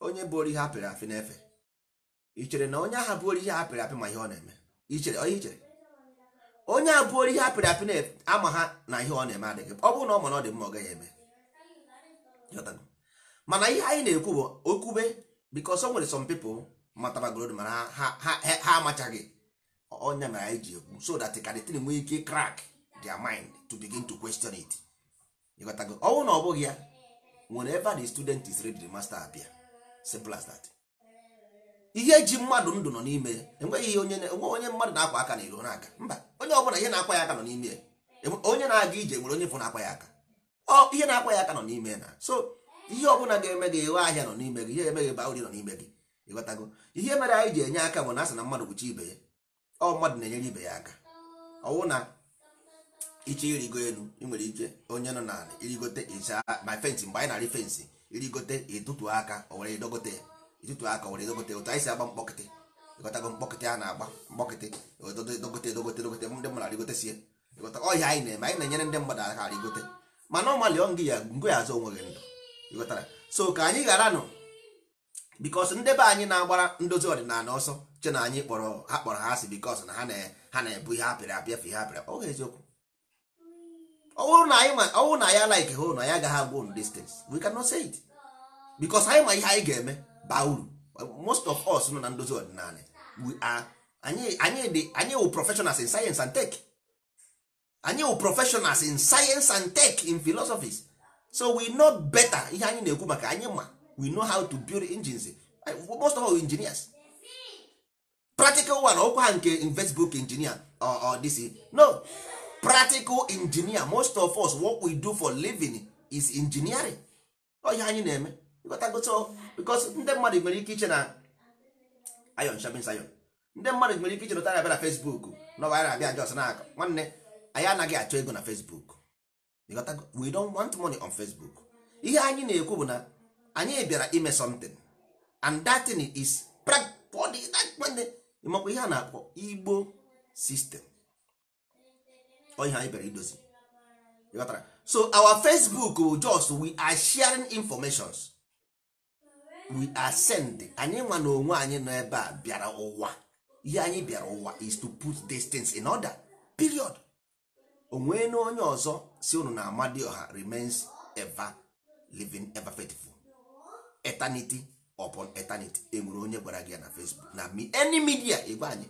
onye bụ ihe apịrị apị na-efe ichere na onye ahụ bụ orihe apịrị apị ma ihe ọ na-eme ichere onye ichere onye a bụ ihe apịrị apị na-ama ha na ihe ọ na-eme adịghị ọ bụrụ na ọ ma na ọ dị mma ọ gaghị eme mana ihe anyị na-ekwu bụ okwube because o nwere some people matara gold mana ha amachaghị onya na anyị ji ekwu so that can kadịtin nwee ike crack their mind to begin to question it ịghọtago ọnwụ na ọ bụghị ya whenever the student is ready the master abịa simple as that ihe ji mmadụ ndụ nọ n'ime enweghị ihe onye onye mmadụ na-akwa aka na iro na-aga mba onye ọbụla ihe na-akwa ya aka nọ n'ime onye na-aga ije nwere onye bụ na-akwa ya aka ọ ihe na-akwa ya aka nọ n'ime na so ihe ọbụla ga-eme gị ịwe ahịa nọ n'ime gị ihe emeghị ba ori nọ n'ime gị ịghọtago ihe mere anyị ji enye aka bụ na asị na mmadụ kwuchi ibe ya ọ mmadụ na-enyere ibe ya aka ọwụ na iche irigo elu ị nwere ike onye nọ na irigote ịcha ma fensị mgbe anyị na fensị irigote ịtụtụ aka o were edogote ịtụtụ aka o were edogote otu anyị si agba mkpọkịtị ịghọtago mkpọkịtị a na-agba mkpọkịtị dogote dogote dogote ndị mmadụ arịgote sie ịghọta ọhịa anyị na-eme anyị na-enyere ndị mmadụ aka arịgote mana ọmalị ọ ngị ya ngụ ya azụ onweghị ndụ ịghọtara so ka anyị ghara nụ bikos ndebe anyị na-agbara ndozi ọdịnala ọsọ che na anyị kpọrọ ha kpọrọ ha asị bikos na ha na-ebu ihe apịrị apịa fe ihe apịrị ọ eziokwu ọwụrụ na ya like hụ na ya agaghị agwa on distance we can not say it bikos anyị ma ihe anyị ga-eme baa uru most of us nọ na ndozi ọdịnala we are anyị wụ professionals in science and tech anyị wụ professionals in science and tech in philosophies so we know better ihe anyị na-ekwu maka anyị ma we know how to build engines most of all engineers practical one ọkwa ha nke investbook engineer or this no practical engineer most of us what we do for living is engineering oyi anyị na-eme because ndị mmadụ nwere ike iche na ayon shabin sayon ndị mmadụ nwere ike iche na abịa na Facebook na anyị na-abịa jos na aka nwanne anyị anaghị achọ ego na Facebook we don want money on Facebook ihe anyị na-ekwu bụ na anyị bịara ime something and that thing is practical ịmakwa ihe a na-akpọ igbo sistem ọihe anyị bịara idozi so our facebook bụ just we are sharing informations we are sending anyị nwa na onwe anyị nọ ebe a bịara ụwa ihe anyị bịara ụwa is to put distance in order period onwe na onye ọzọ si unu na ọha remains ever living ever faithful eternity upon eternity enwere onye gwara gị ya na facebook na any media igwe anyị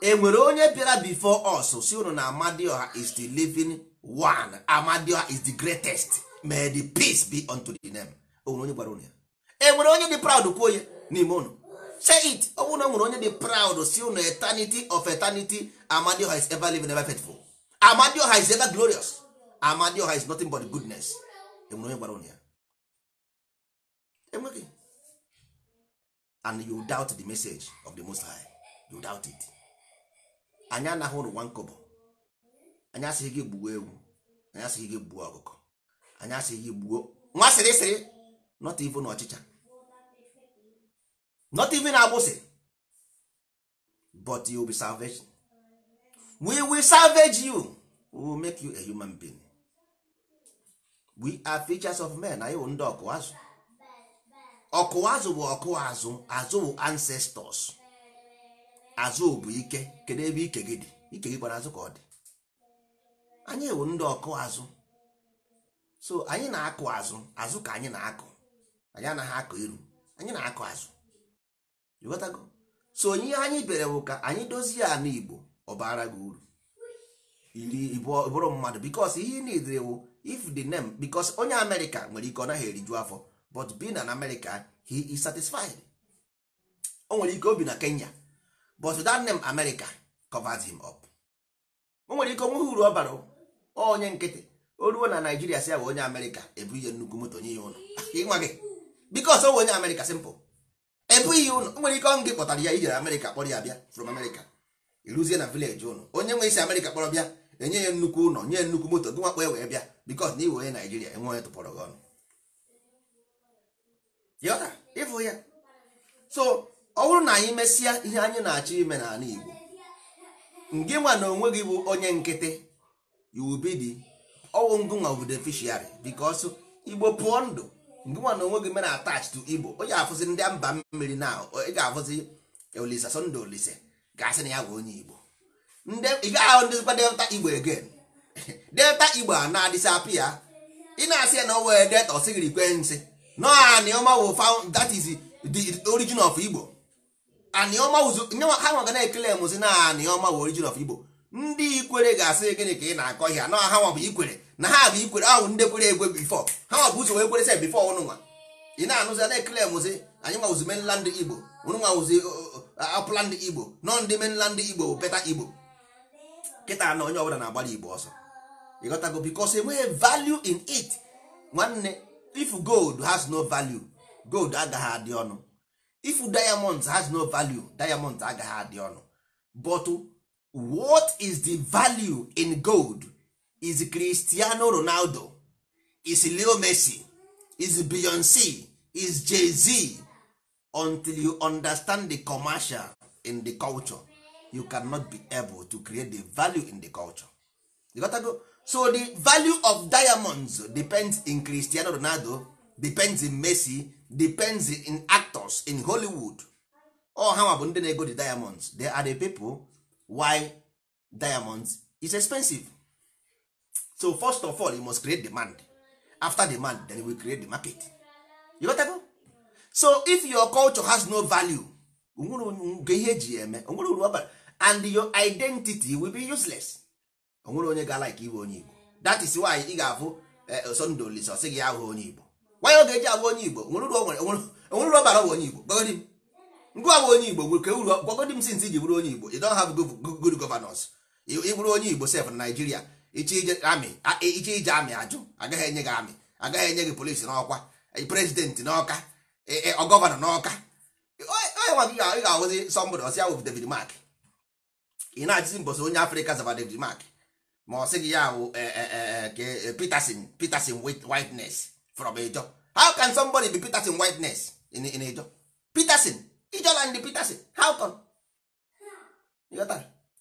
enwere onye bịara before us si unu na amadioha is the living one amadioha is the greatest may the peace be unto the name onwere onye gwara unu ya enwere onye dị proud kwuo ya n'ime unu say it ọ na nwere onye dị proud si unu eternity of eternity amadioha is ever living ever faithful amadioha is ever glorious amadioha is nothing but goodness enwere onye gwara ya enweghị and you doubt the message of the most high you doubt it anyị anaghị ụrụ nwa nkọbọ anyị asịghị gị gbuo ewu anyị asịghị gị gbuo ọkụkọ anyị asịghị gị gbuo nwa sịrịsịrị not even ọchịcha not even agbụsị but you will be salvation we will salvage you we will make you a human being we are features of men na wụ ndị ọkụ azụ ọkụwa azụ bụ ọkụwa azụ azụ bụ ancestors azụ bụ ike kedu ebe ike gị dị ike gị kpara azụ ka ọ dị anyị ewu ndị ọkụ azụ so anyị na-akụ azụ azụ ka anyị na-akụ anyị anaghị akụ iru anyị na-akụ azụ ịghọtago so onye anyị bere bụ ka anyị dozie ala igbo ọ bara gị uru iri bụrụ mmadụ bikos ihe ị na-edere wụ if the name bikos onye amerịka nwere ike ọ naghị eriju afọ but being an American he is satisfied o nwere ike obi na Kenya but that name America covers him up o nwere ike onweghị uru ọ bara onye nkịtị o ruo na Naijiria si ya onye America ebu ihe nnukwu moto nye ya ụlọ ịnwa gị because o onye America simple ebu ihe ụlọ o nwere ike ọnụ gị kpọtara ya ijere America kpọrọ ya bịa from America iruzie na village ụlọ onye nwe isi America kpọrọ bịa enye ya nnukwu ụlọ nye nnukwu moto gị nwakpọ ya wee bịa because na iwe onye Naijiria enwe onye tụpọrọ gị ọnụ yọta ịfụ ya so ọ bụrụ na anyị mesịa ihe anyị na-achọ ime n'ala Igbo ngị nwa na onwe gị bụ onye nkịtị yubidi ọwụ ngụnwa bụ deficiary because Igbo pụọ ndụ ngị nwa na onwe gị mere attach to Igbo onye afụzi ndị mba mmiri na ị ga-afụzi olise Sunday Olise ga-asị na ya bụ onye Igbo ị gaa ahụ ndịzikwa delta Igbo again delta Igbo a na-adịsapịa ị na-asị ya na o wee delta ọ sịghị nsị no anioma found that is the origin of igbo ha nwa ga na-ekele mụzi na anioma wo origin of igbo ndị ikwere ga-asị gịnị ka ị na-akọ ihe na ha nwa bụ ikwere na ha bụ ikwere ahụ ndị kwere egwe bifọ ha nwa bụ ụzọ wee kwere se bifọ ọnụnwa ị na-anụzi na-ekele mụzi anyị nwa wuzi ndị igbo ọnụnwa wuzi uh, uh, upland igbo nọ ndị mainland igbo bụ beta igbo kịta na onye ọbụla na-agbara igbo ọsọ ịghọtago because enweghị value in it nwanne if gold has no value gold agaghị adị ọnụ if diamond has no value diamond agaghị adị ọnụ but what is the value in gold is cristiano ronaldo is leo messi is beyonce is jay-z until you understand the commercial in the culture you cannot be able to create the value in the culture you to go so the value of diamonds depends in cristiano ronaldo depends in messi depends in actors in hollywood all ha bụ ndị na-ego the diamonds they are the people why diamonds is expensive so first of all you must create demand after demand then we create the market you got go? so if your culture has no value onwere ihe eji eme onwere uru and your identity will be useless onwere onye ga-alaiki iwe onye igbo that is why ị ga-afụ eh, Sunday Olisa sị gị ahụ onye igbo nwanyị oge eji abụ onye igbo onwere uru ọbara onye igbo gbagodi m onye igbo gwere ka e since iji bụrụ onye igbo you don't have good governance ị onye igbo sef na Naịjirịa iche ije amị ajụ agaghị enye gị amị agaghị enye gị polisi n'ọkwa eh, prezidenti n'ọka eh, n'ọka onye nwa gị ga-ahụzi Mark na-achịzi mbọsi onye Afrịka zaba David Mark ma ọ sị gị ya wụ eh, eh, eh, peterson peterson whiteness from ejo how can somebody be peterson whiteness in, in ejo peterson ijoland peterson how come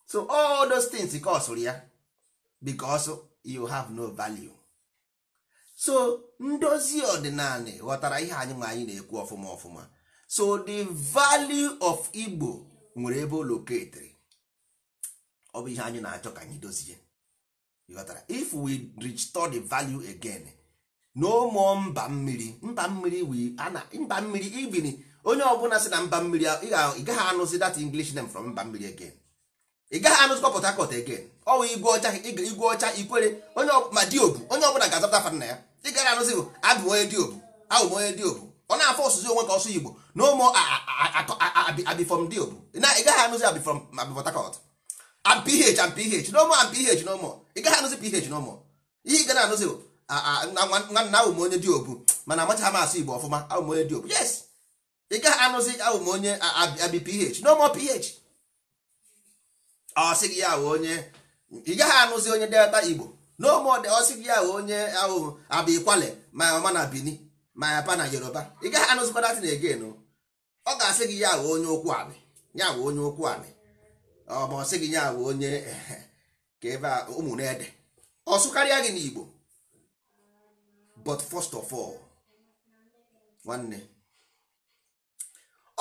so all those things kosụrụ ya because you have no value so ndozi ọdịnala ghọtara ihe anyị nwe anyị na-ekwu ọfụma ọfụma so the value of igbo nwere ebe o loketiri ọ bụ ihe anyị na-achọ ka anyị dozie ghọtara if we restore the value again no more mba mmiri mba mmiri we onye ọbụla si na mba mmiri ị gaghị anụzi that english name from mba mmiri again ị gaghị anụzikwa port harcourt again ọwụ igwe ọcha ikwere onye ma diobu onye ọbụla ga-azapụta fa na ya ị gaghị anụzi bụ abụ onye diobu abụ onye diobu ọ na-afọ ọsụzi onwe ka ọsụ igbo na ụmụ abifọm diobu ị gaghị anụzi abifọm abifọtakọt no more no more ị gaghị anụzi ph na ụmụ ihe ị ga na-anụzi nwanna ahụ m onye dị obu mana amachaghị m asụ igbo ọfụma ahụ m onye dị obu yes ị gaghị anụzi ahụ m onye abi ph na ph ọ gị ya ahụ onye ị gaghị anụzi onye delta igbo na ụmụ ọsị gị ahụ onye ahụ abụ kwale ma mama na bini ma yapa na yoruba ị gaghị anụzi anụzikwa datin egen ọ ga-asị gị ya ahụ onye ụkwụ anị ya ahụ onye ụkwụ anị ọ ma ọ gị ya ahụ onye ehe ka ebe a ụmụ na-ede ọsụ karịa gị n'Igbo but first of all nwanne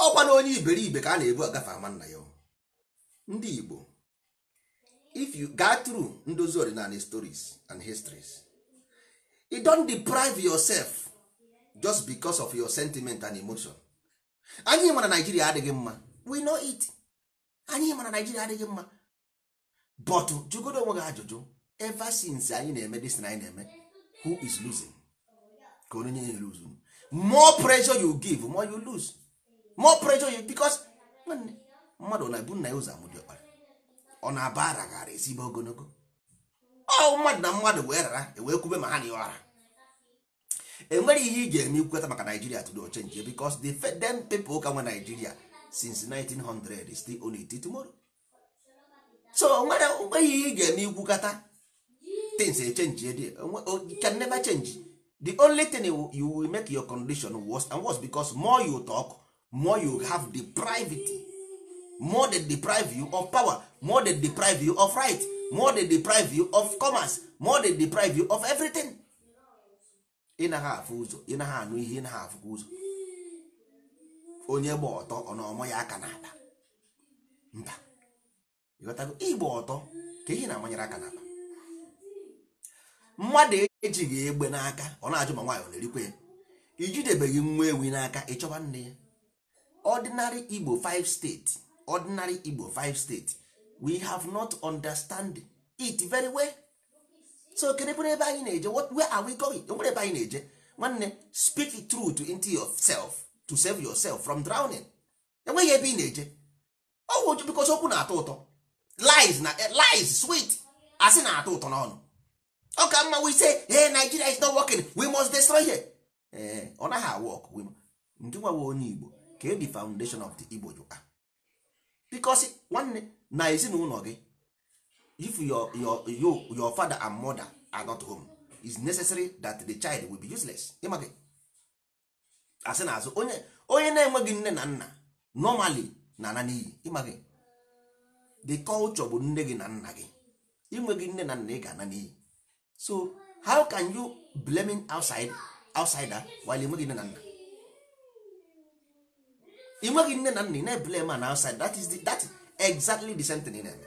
ọkwa na onye iberibe ka a na-ebu agafe ama nna ya ndị Igbo if you go through ndozi ọdịnala stories and histories you e don deprive yourself just because of your sentiment and emotion anyị ma na Naijiria adịghị mma we know it anyị ma na Naijiria adịghị mma but jụgodo onwe gị ajụjụ ever since anyị na-eme dis na anyị na-eme who is losing ka onye nye lose more pressure you give more you lose more pressure you because mmadụ na-ebu nna ya ụzọ amụdị ọkpara ọ na-abara aba gara ezigbo ogologo ọ mmadụ na mmadụ wee rara ewee kwube ma ha na ọra enwere ihe ị ga-eme ikweta maka Nigeria today o change because the them people ka nwe Nigeria since 1900 still only till tomorrow so nwere mgbe ihe ị ga-eme ikwukata things echenji ede uh, uh, can never change the only thing you will make your condition worse and worse because more you talk more you have deprived more than deprive you of power more than deprive you of right more than deprive you of commerce more than deprive you of everything ị naghị afụ ụzọ ị naghị anụ ihe ị afụkwa ụzọ onye gba ọtọ ọ na ọmụ ya aka n'ala mba ịghọtago igba ọtọ ka ihe na-amanyere aka n'akpa mmadụ ejighị egbe n'aka ọ na-ajụ ma nwaanyị ọ na-erikwa ya ijidebeghị nwa ewi n'aka ịchọba nne ya ọdịnarị igbo 5 steeti ọdịnarị igbo 5 steeti we have not understand it very well so kedebere ebe anyị na-eje where are we going onwere ebe anyị na-eje nwanne speak truth into yourself to save yourself from drowning enweghị ebe ị na-eje Ọ ọgwụ bikọsi okwu na-atọ ụtọ lies na eh, lies sweet asị na-atọ ụtọ n'ọnụ ọ ka mma we say hey Nigeria is not working we must destroy her eh, ọ naghị awọk ndị nwawe onye Igbo ka the foundation of the Igbo you ah. because nwanne na ezinụlọ gị if your your your your father and mother are not home it's necessary that the child will be useless ịma asị na azụ onye onye na-enweghị nne na nna normally na ana n'iyi ịma the culture bụ nne gị na nna gị inweghị nne na nna ị ga-ana n'iyi so how can you blaming outside outsider while inweghị nne na nna inweghị nne na nna ị na eblem an outside that is the, that exactly the same thing na-eme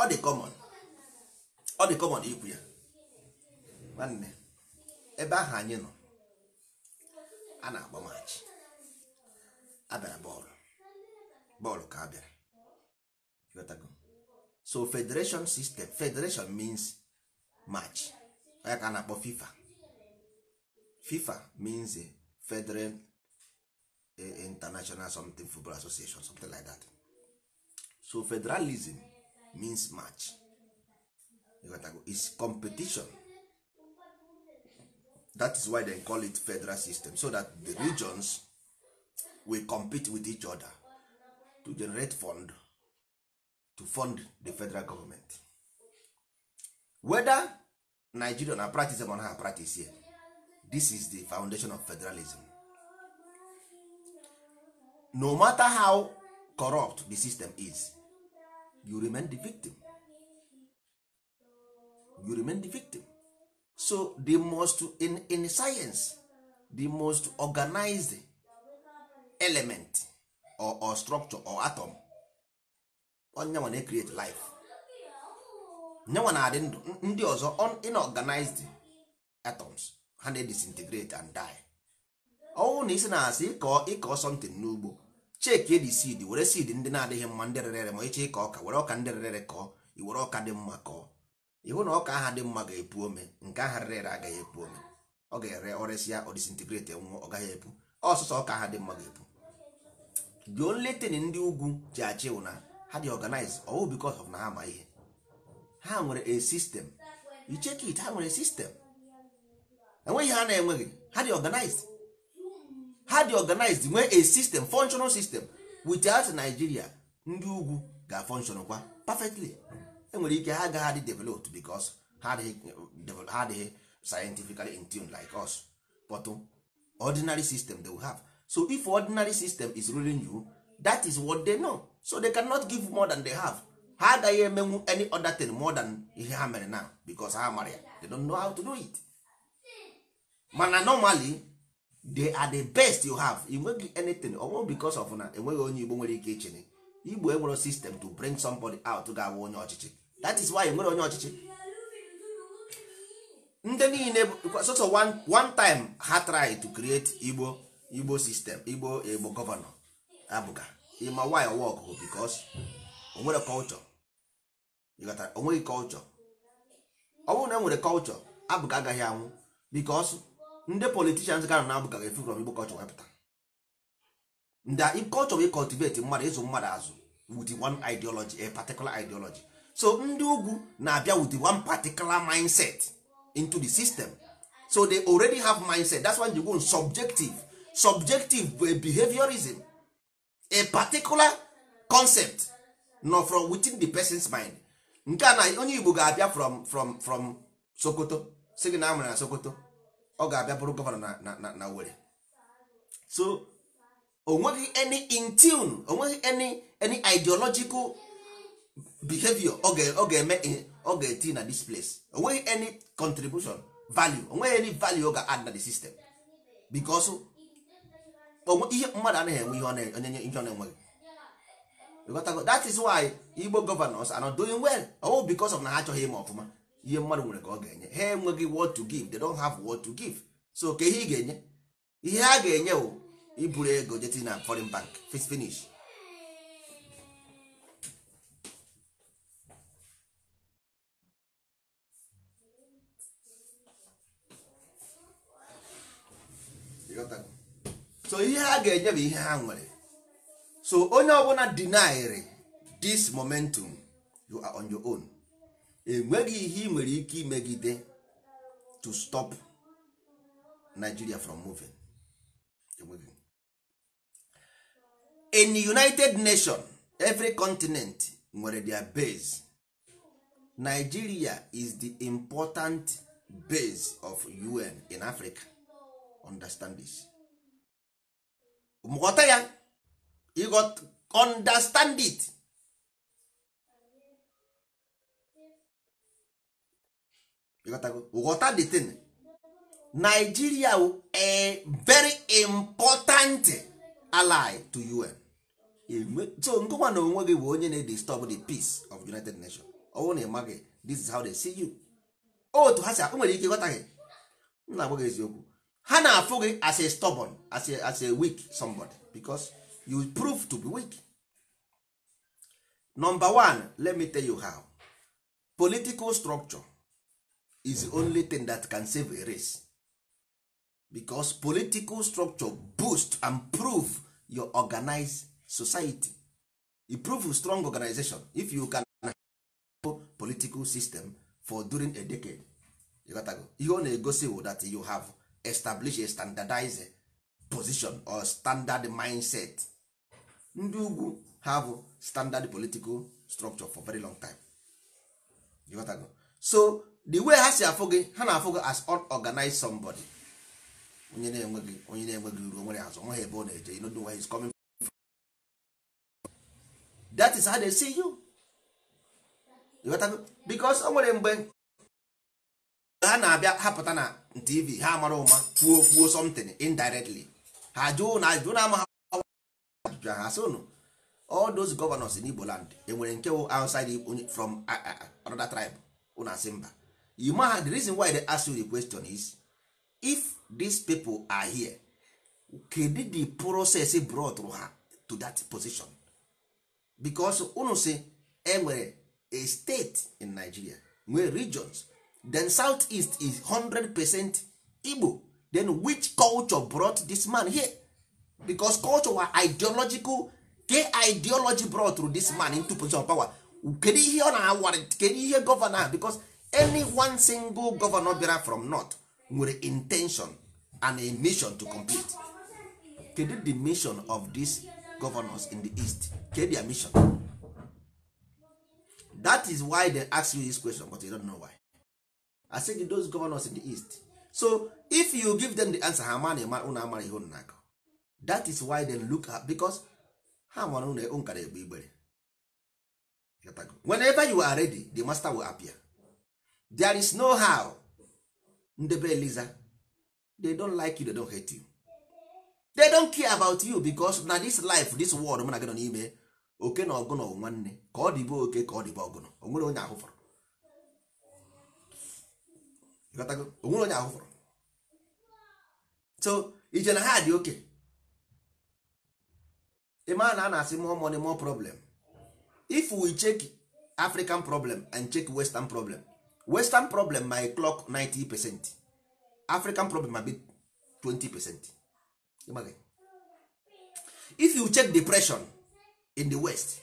ọ dị common ọ dị common ikwu ya nwanne ebe ahụ anyị nọ a na-agba maachị abịara bọọlụ bọọlụ ka abịara so federation system federation means match onye ka a na-akpọ fifa fifa means a federal eh, international something football association something like that so federalism means match is competition that is why they call it federal system so that the regions will compete with each other to generate fund to fund the federal government whether nigeria na practice on her practice here this is the foundation of federalism no matter how corrupt the system is you remain the victim you remain the victim so the most in, in science the most organized element or, or structure or atom onyenwa na create life nyenwa na-adị ndụ ndị ọzọ inorganized atoms ha na disintegrate and die ọnwụ na isi na-asị ịkọ ịkọ n'ugbo cheki edi seed were seed ndị na-adịghị mma ndị rere ma ịchị ịkọ ọka were ọka ndị rere kọọ iwere ọka dị mma kọọ iwu na ọka aha dị mma ga-epu ome nke aha rere ere agaghị epu ome ọ ga-ere ọresịa ọ disintegrate nwụọ ọ gaghị epu ọsụsọ ọka aha dị mma ga-epu the only thing ndị ugwu ji achị na ha dị organize ọwụ because of na ha ma ihe ha nwere a system icheki it ha nwere system enweghị ha na-enweghị ha dị organized ha dị organized nwee a system functional system without Nigeria ndị ugwu ga-functional kwa perfectly enwere ike ha agaghị adị developed bicos ha adịghị scientifically in tune like us but ordinary system they will have so if ordinary system is ruling you that is what they know so they cannot give more than they have ha agaghị emenwu any other thing more than ihe ha mere now bicos ha mara ya they don't know how to do it mana normally they are the best you have enweghị anything ọnwụ because of na enweghị onye igbo nwere ike ichere igbo egboro system to bring somebody out ga-awụ onye ọchịchị that is why nwere onye ọchịchị ndị niile so one time ha try to create igbo igbo system igbo igbo gọvanọ abụga ịma why work bụ because onwere culture onweghị culture ọ bụrụ na e nwere culture abụga agaghị anwụ because ndị politicians ga na abụga ga-efu from igbo culture wepụta ndị culture wey cultivate mmadụ ịzụ mmadụ azụ with one ideology a particular ideology so ndị ugwu na-abịa with one particular mindset into the system so they already have mindset that's why you go subjective subjective bụ behaviorism a particular concept nọ from within the person's mind nke a na onye igbo ga-abịa from from from sokoto si na amụrụ na sokoto ọ ga-abịa bụrụ gọvanọ na na na were so onweghị any in tune onweghị any any ideological behavior ọ ga-eme ọ ga-eti na this place onweghị any contribution value onweghị any value ọ ga-add na the system because ihe mmadụ anaghị enwe ihe onye ihe ọ na-enweghị that is why Igbo governors are not doing well ọwụ because of na ha achọghị ime ọfụma ihe mmadụ nwere ka ọ ga-enye ha enweghị what to give they don't have what to give so ka ihe ị ga-enye ihe ha ga-enye bụ iburu ego jeti na foreign bank finish so ihe ha ga-enye ihe ha nwere so onye ọbụla dinairi this momentum you are on your own enweghị ihe ị nwere ike imegide to stop Nigeria from moving in the United nation every continent nwere their base Nigeria is the important base of UN in Africa understand ghọta ya you got understand it ghọta the thing Nigeria a very important ally to UN so nkụkwa na onwe gị bụ onye na-disturb the peace of United Nations ọ na ị this is how they see you otu oh, ha si akpụ nwere ike ịghọta gị m na-agwa gị eziokwu ha na-afụ gị as a stubborn as a, as a weak somebody because you prove to be weak number one let me tell you how political structure is the only thing that can save a race because political structure boost and prove your organized society it prove strong organization if you can political system for during a decade ihe ọ na-egosi that you have establish a standardized position or standard mindset ndị ugwu have standard political structure for very long time you got to go. so the way ha si afụ gị ha na-afụ gị as unorganized somebody onye na-enweghị onye na-enweghị uru nwere azụ nweghị ebe ọ na-eje you know where he's coming from. that is how they see you. you got to go. because o nwere mgbe ha na-abịa hapụta na tv ha mara ụma kwuo kwuo something indirectly ha jụụ na ajụjụ na-ama ha ajụjụ ha sị ụnụ all those governors in Igbo land enwere nke wụ outside from another tribe ụnụ asị mba you ma the reason why they ask you the question is if these people are here kedu the process e brought ha to that position because ụnụ sị enwere a state in Nigeria nwee regions then southeast is 100 percent igbo then which culture brought this man here because culture were ideological ke ideology brought through this man into position of power kedu ihe ọ na-awara kedu ihe gọvanọ because any one single governor bịara from north nwere intention and a mission to complete kedu the mission of these governors in the east kedu their mission that is why they ask you this question but you don't know why said gị those governors in the east so if you give them the answer ha ma na amara ihe unu na that is why they look at because ha mara unu e nkara egbe igbere whenever you are ready the master will appear there is no how ndebe eliza they don't like you they don't hate you they don't care about you because na this life this world mụ na gị nọ n'ime oke na ọgụnọ nwanne ka ọ dịbe oke ka ọ dịbe ọgụ o onye ahụ fọrọ onwere onye ahụ so ije na ha dị oke ịma na a na-asị more money more problem if we check african problem and check western problem western problem my clock 90 percent african problem ma be 20 percent if you check depression in the west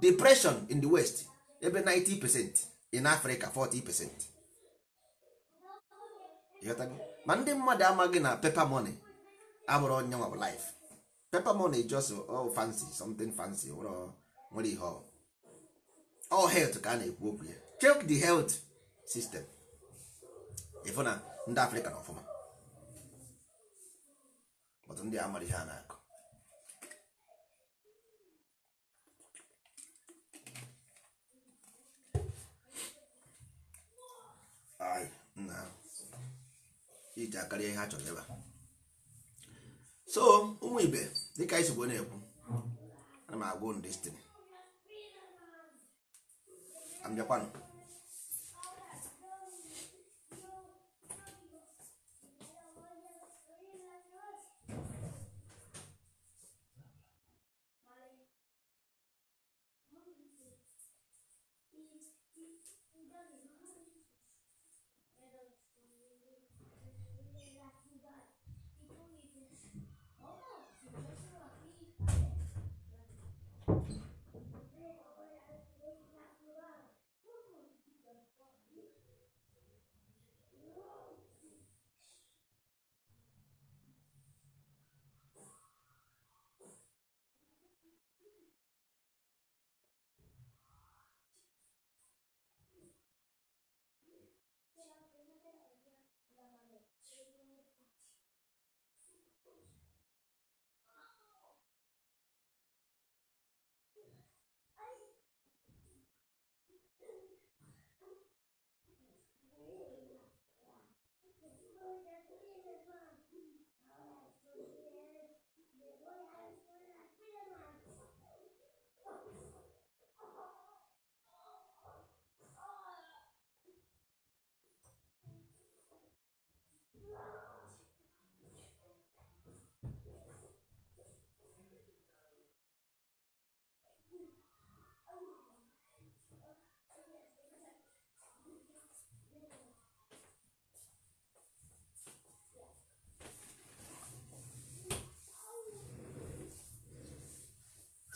depression in the west ebe 90 percent in africa 40 percent ịghọtago ma ndị mmadụ amaghị na pepa money abụrụ onye nwa laịf pepa money just all uh, oh, fancy something fancy nwere ihe all health ka a na-ekwu okwu ya check the health sistem ịfụ na ndị afrịka na ọfụma ọtụ ndị amara ihe a na-akụ Ay, iji akarịa ihe a chọrọ ebe a so ụmụ ibe dịka anyị sigbo na-ekwu ana m ndị unu destin abịakwanụ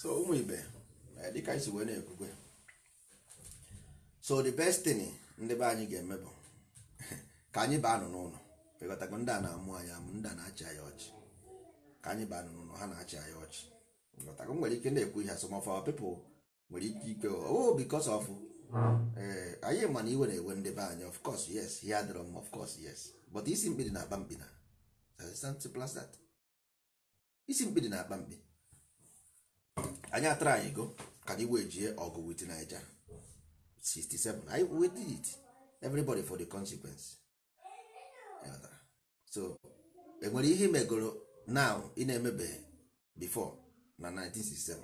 so ụmụ ibe dịka anyị si wee na-ekwukwe so the best thing ndị be anyị ga-eme bụ ka anyị baa nụ n'ụlọ pekọtakwa ndị a na-amụ anyị amụ ndị a na-achị anyị ọchị ka anyị baa nụ n'ụlọ ha na-achị anyị ọchị ngọtakwa nwere ike na-ekwu ihe some of nwere ike ikwe oh because ọfụ ee eh, anyị mana iwe na-ewe ndị be anyị of course yes ihe adịrọ m of course yes but isi mkpidi na-akpa mkpi na isi mkpidi na-akpa mkpi anyị atara anyị go ka anyị wee jie ọgụ with Naija 67 anyị we did it everybody for the consequence so enwere ihe megoro now ị na-emebe before na 1967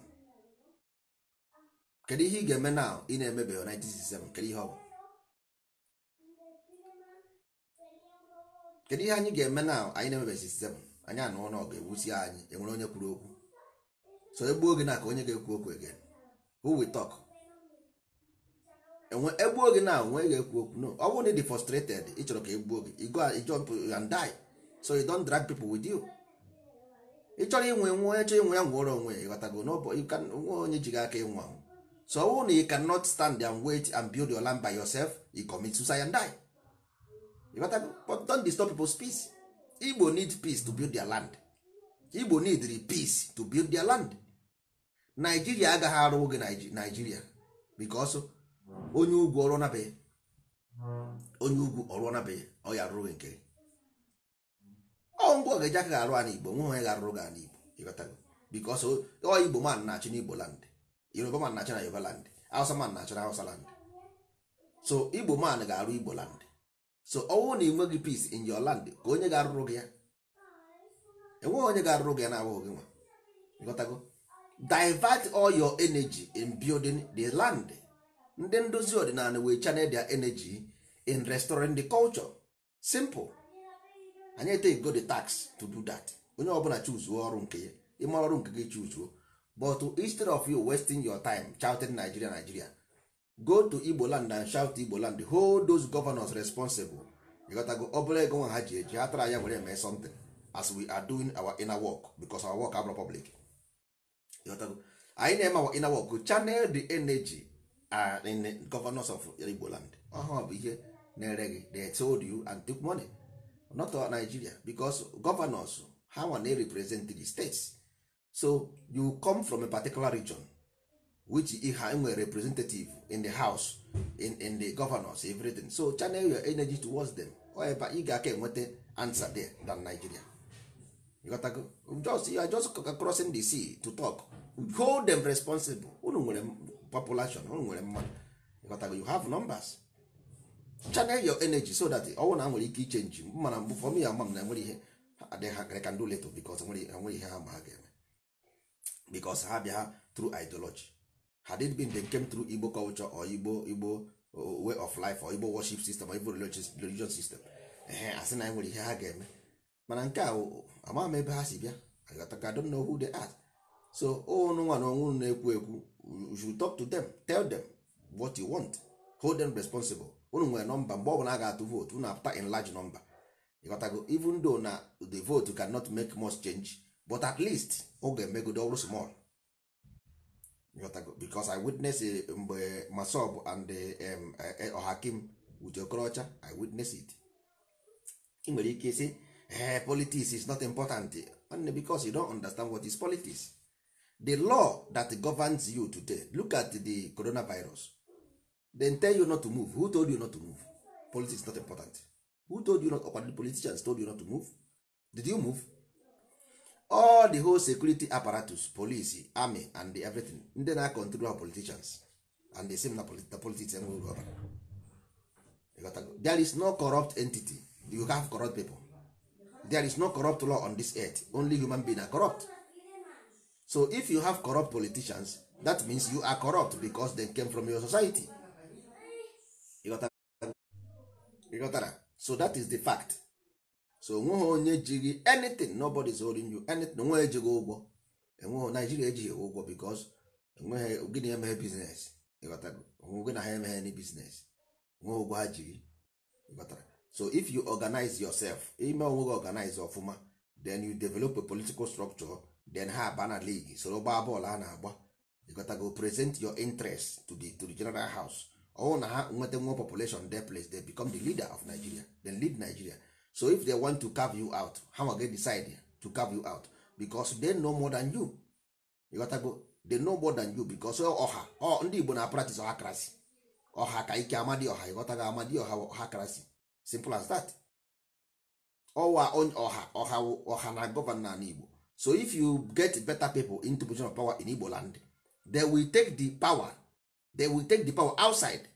kedu ihe ị ga-eme now ị na-emebe 1967 kedu ihe ọ bụ kedu ihe anyị ga-eme now anyị na-emebe 67 anyị anụ n'ọgụ ewusi anyị enwere onye kwuru okwu so egbuo gị na ka onye ga-ekwu okwu again who we talk enwe egbuo gị na onwe ga-ekwu okwu no ọ bụrụ na ịdị frustrated ị chọrọ ka egbuo gị you go and jump and die so you don't drag people with you ị chọrọ inwe nwa onye chọrọ inwe ya nwụọrọ onwe ịghọtago nwa onye ji gị aka ịnwụ anwụ so ọ bụrụ na you cannot stand and wait and build your land by yourself you commit suicide and die ịghọtago but don't disturb people's peace Igbo need peace to build their land Igbo need the peace to build their land naijiria agaghị arụ oge naijiria bikọsụ onye ugwu ọrụ nabeghị onye ugwu ọrụ nabeghị ọ ya rụrụ nke ọ ngwa ga-eji aka ga-arụ ana igbo nwe onye ga-arụrụ gị ana igbo ịghọtago bikọsụ ọ igbo man na-achị na igbo land yoruba man na-achị na yoruba land hausa man na-achị na hausa land so igbo man ga-arụ igbo land so ọnwụ na enweghị peace in your land ka onye ga-arụrụ gị ya enweghị onye ga-arụrụ gị ya na-abụghị gị nwa ịghọtago divert all your energy in building the land ndị ndozi ọdịnala wee channel their energy in restoring the culture simple anyị take go the tax to do that onye ọbụla chuzuo ọrụ nke ya ịma ọrụ nke gị chuzuo but instead of you wasting your time shouting Nigeria Nigeria go to Igbo land and shout Igbo land hold those governors responsible ịghọtago ọ bụla ego nwa ha ji eji ha tara anya were mee something as we are doing our inner work because our work abụrụ public anyị na-eme inawọkụ channel the energy in governors of Igbo land ọhụụ bụ ihe na-ere gị they told you and took money not all Nigeria because governors ha nwa na represent the states so you come from a particular region which ha nwere representative in the house in, in the governors everything so channel your energy towards them ọ ebe ị ga-aka enweta answer there than Nigeria just you are just crossing the sea to talk hold them responsible unu nwere population unu nwere mmadụ you have numbers channel your energy so that ọnwụ na nwere ike ichenji mana mbụ fọm ya ama m na enwere ihe adịghị ka ndị leto bikos enwere ihe ha ma ha ga-eme bikos ha bịa tru ideology had it been they came through igbo culture or igbo igbo uh, way of life or igbo worship system or igbo religious, system ehe asị na nwere ihe ha ga-eme mana nke a ama m ebe ha si bịa agatagado na ohu the art so ụnụ nwa na ọnwụ na-ekwu ekwu you should talk to them tell them what you want hold them responsible unu nwere nọmba mgbe ọ bụla a ga-atụ vootu unu apụta in large number ịghọtago even though na the vote cannot make much change but at least ọ ga-emegodo ọrụ small ịghọtago because I witness eh, mgbe Masob and eh, eh, Ohakim with Okorocha I witness it ị nwere ike sị Eh, politics is not important only because you don't understand what is politics the law that governs you today look at the coronavirus then tell you not to move who told you not to move politics is not important who told you not or the politicians told you not to move did you move all the whole security apparatus police army and the everything ndị na control our politicians and the same na the politics there is no corrupt entity you have corrupt people there is no corrupt law on this earth only human being are corrupt so if you have corrupt politicians that means you are corrupt because they came from your society ịghọtara so that is the fact so onweghị onye jighị anything nobody is holding you anything onweghị ejighị ụgwọ enweghị naijiria ejighị ụgwọ because enweghị gịnị emeghe biznes ịghọtara onwe gị na ha emeghe any biznes onweghị ụgwọ ha jiri ịghọtara so if you organize yourself ime onwe gị organize ọfụma then you develop a political structure then ha aba na league soro gbaa bọọlụ a na-agba ịgotago present your interest to the, to the general house ọwụ na ha nweta nwa population de place they become the leader of Nigeria then lead Nigeria so if they want to carve you out ha nwa decide to carve you out because they know more than you ịgotago they know more than you because ọha ndị Igbo na practice krasi. ọha ka ike amadi ọha ịghọtago amadi ọha krasi. simple as that ọwa ọha ọha ọha na gọvanọ na igbo so if you get better people into position of power in igbo land they will take the power they will take the power outside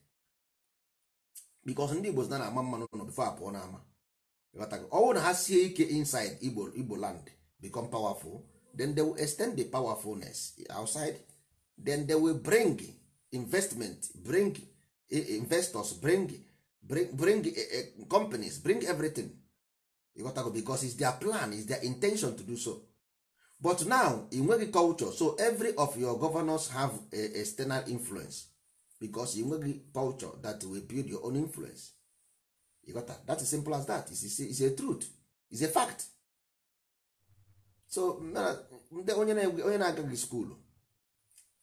because ndị igbo na na-ama mmanụ nọ before apụọ n'ama ọwụ na ha sie ike inside igbo igbo land become powerful then they will extend the powerfulness outside then they will bring investment bring eh, investors bring bring, bring uh, companies bring everything ịghọtago bicos is their plan is their intention to do so but now ị culture so every of your governors have a external influence because ị culture that will build your own influence ịghọta that is simple as that is is a truth is a fact so ndị onye na-agaghị skuulu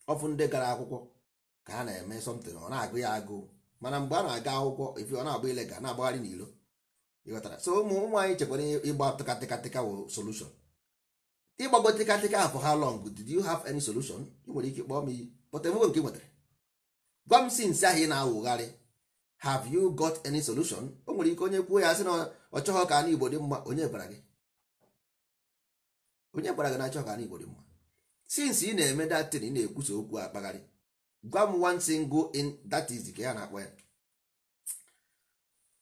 ọfụ ndị gara akwụkwọ ka ha na-eme something ọ na-agụ ya agụụ mana mgbe a na-aga akwụkwọ ifi ọ na-agba ilega na-agbagharị n'ilo ịghọtara so ụmụ ụmụ anyị chekwara ịgba tịkatịkatịka wụ solushon ịgbago tịkatịka afọ ha long did you have any solution ị nwere ike kpọọ m iyi pụta enwego nke nwetara gwam si nsị ahụ ị na-awụgharị have you got any solution o nwere ike onye kwuo ya sị na ọ chọghọ ka anụ igbo dị mma onye gwara gị onye gwara gị na achọghọ ka anụ igbo dị mma since ị na-eme datin ị na-ekwusa okwu akpagharị gwa m one single in that is ka ya na-akpọ ya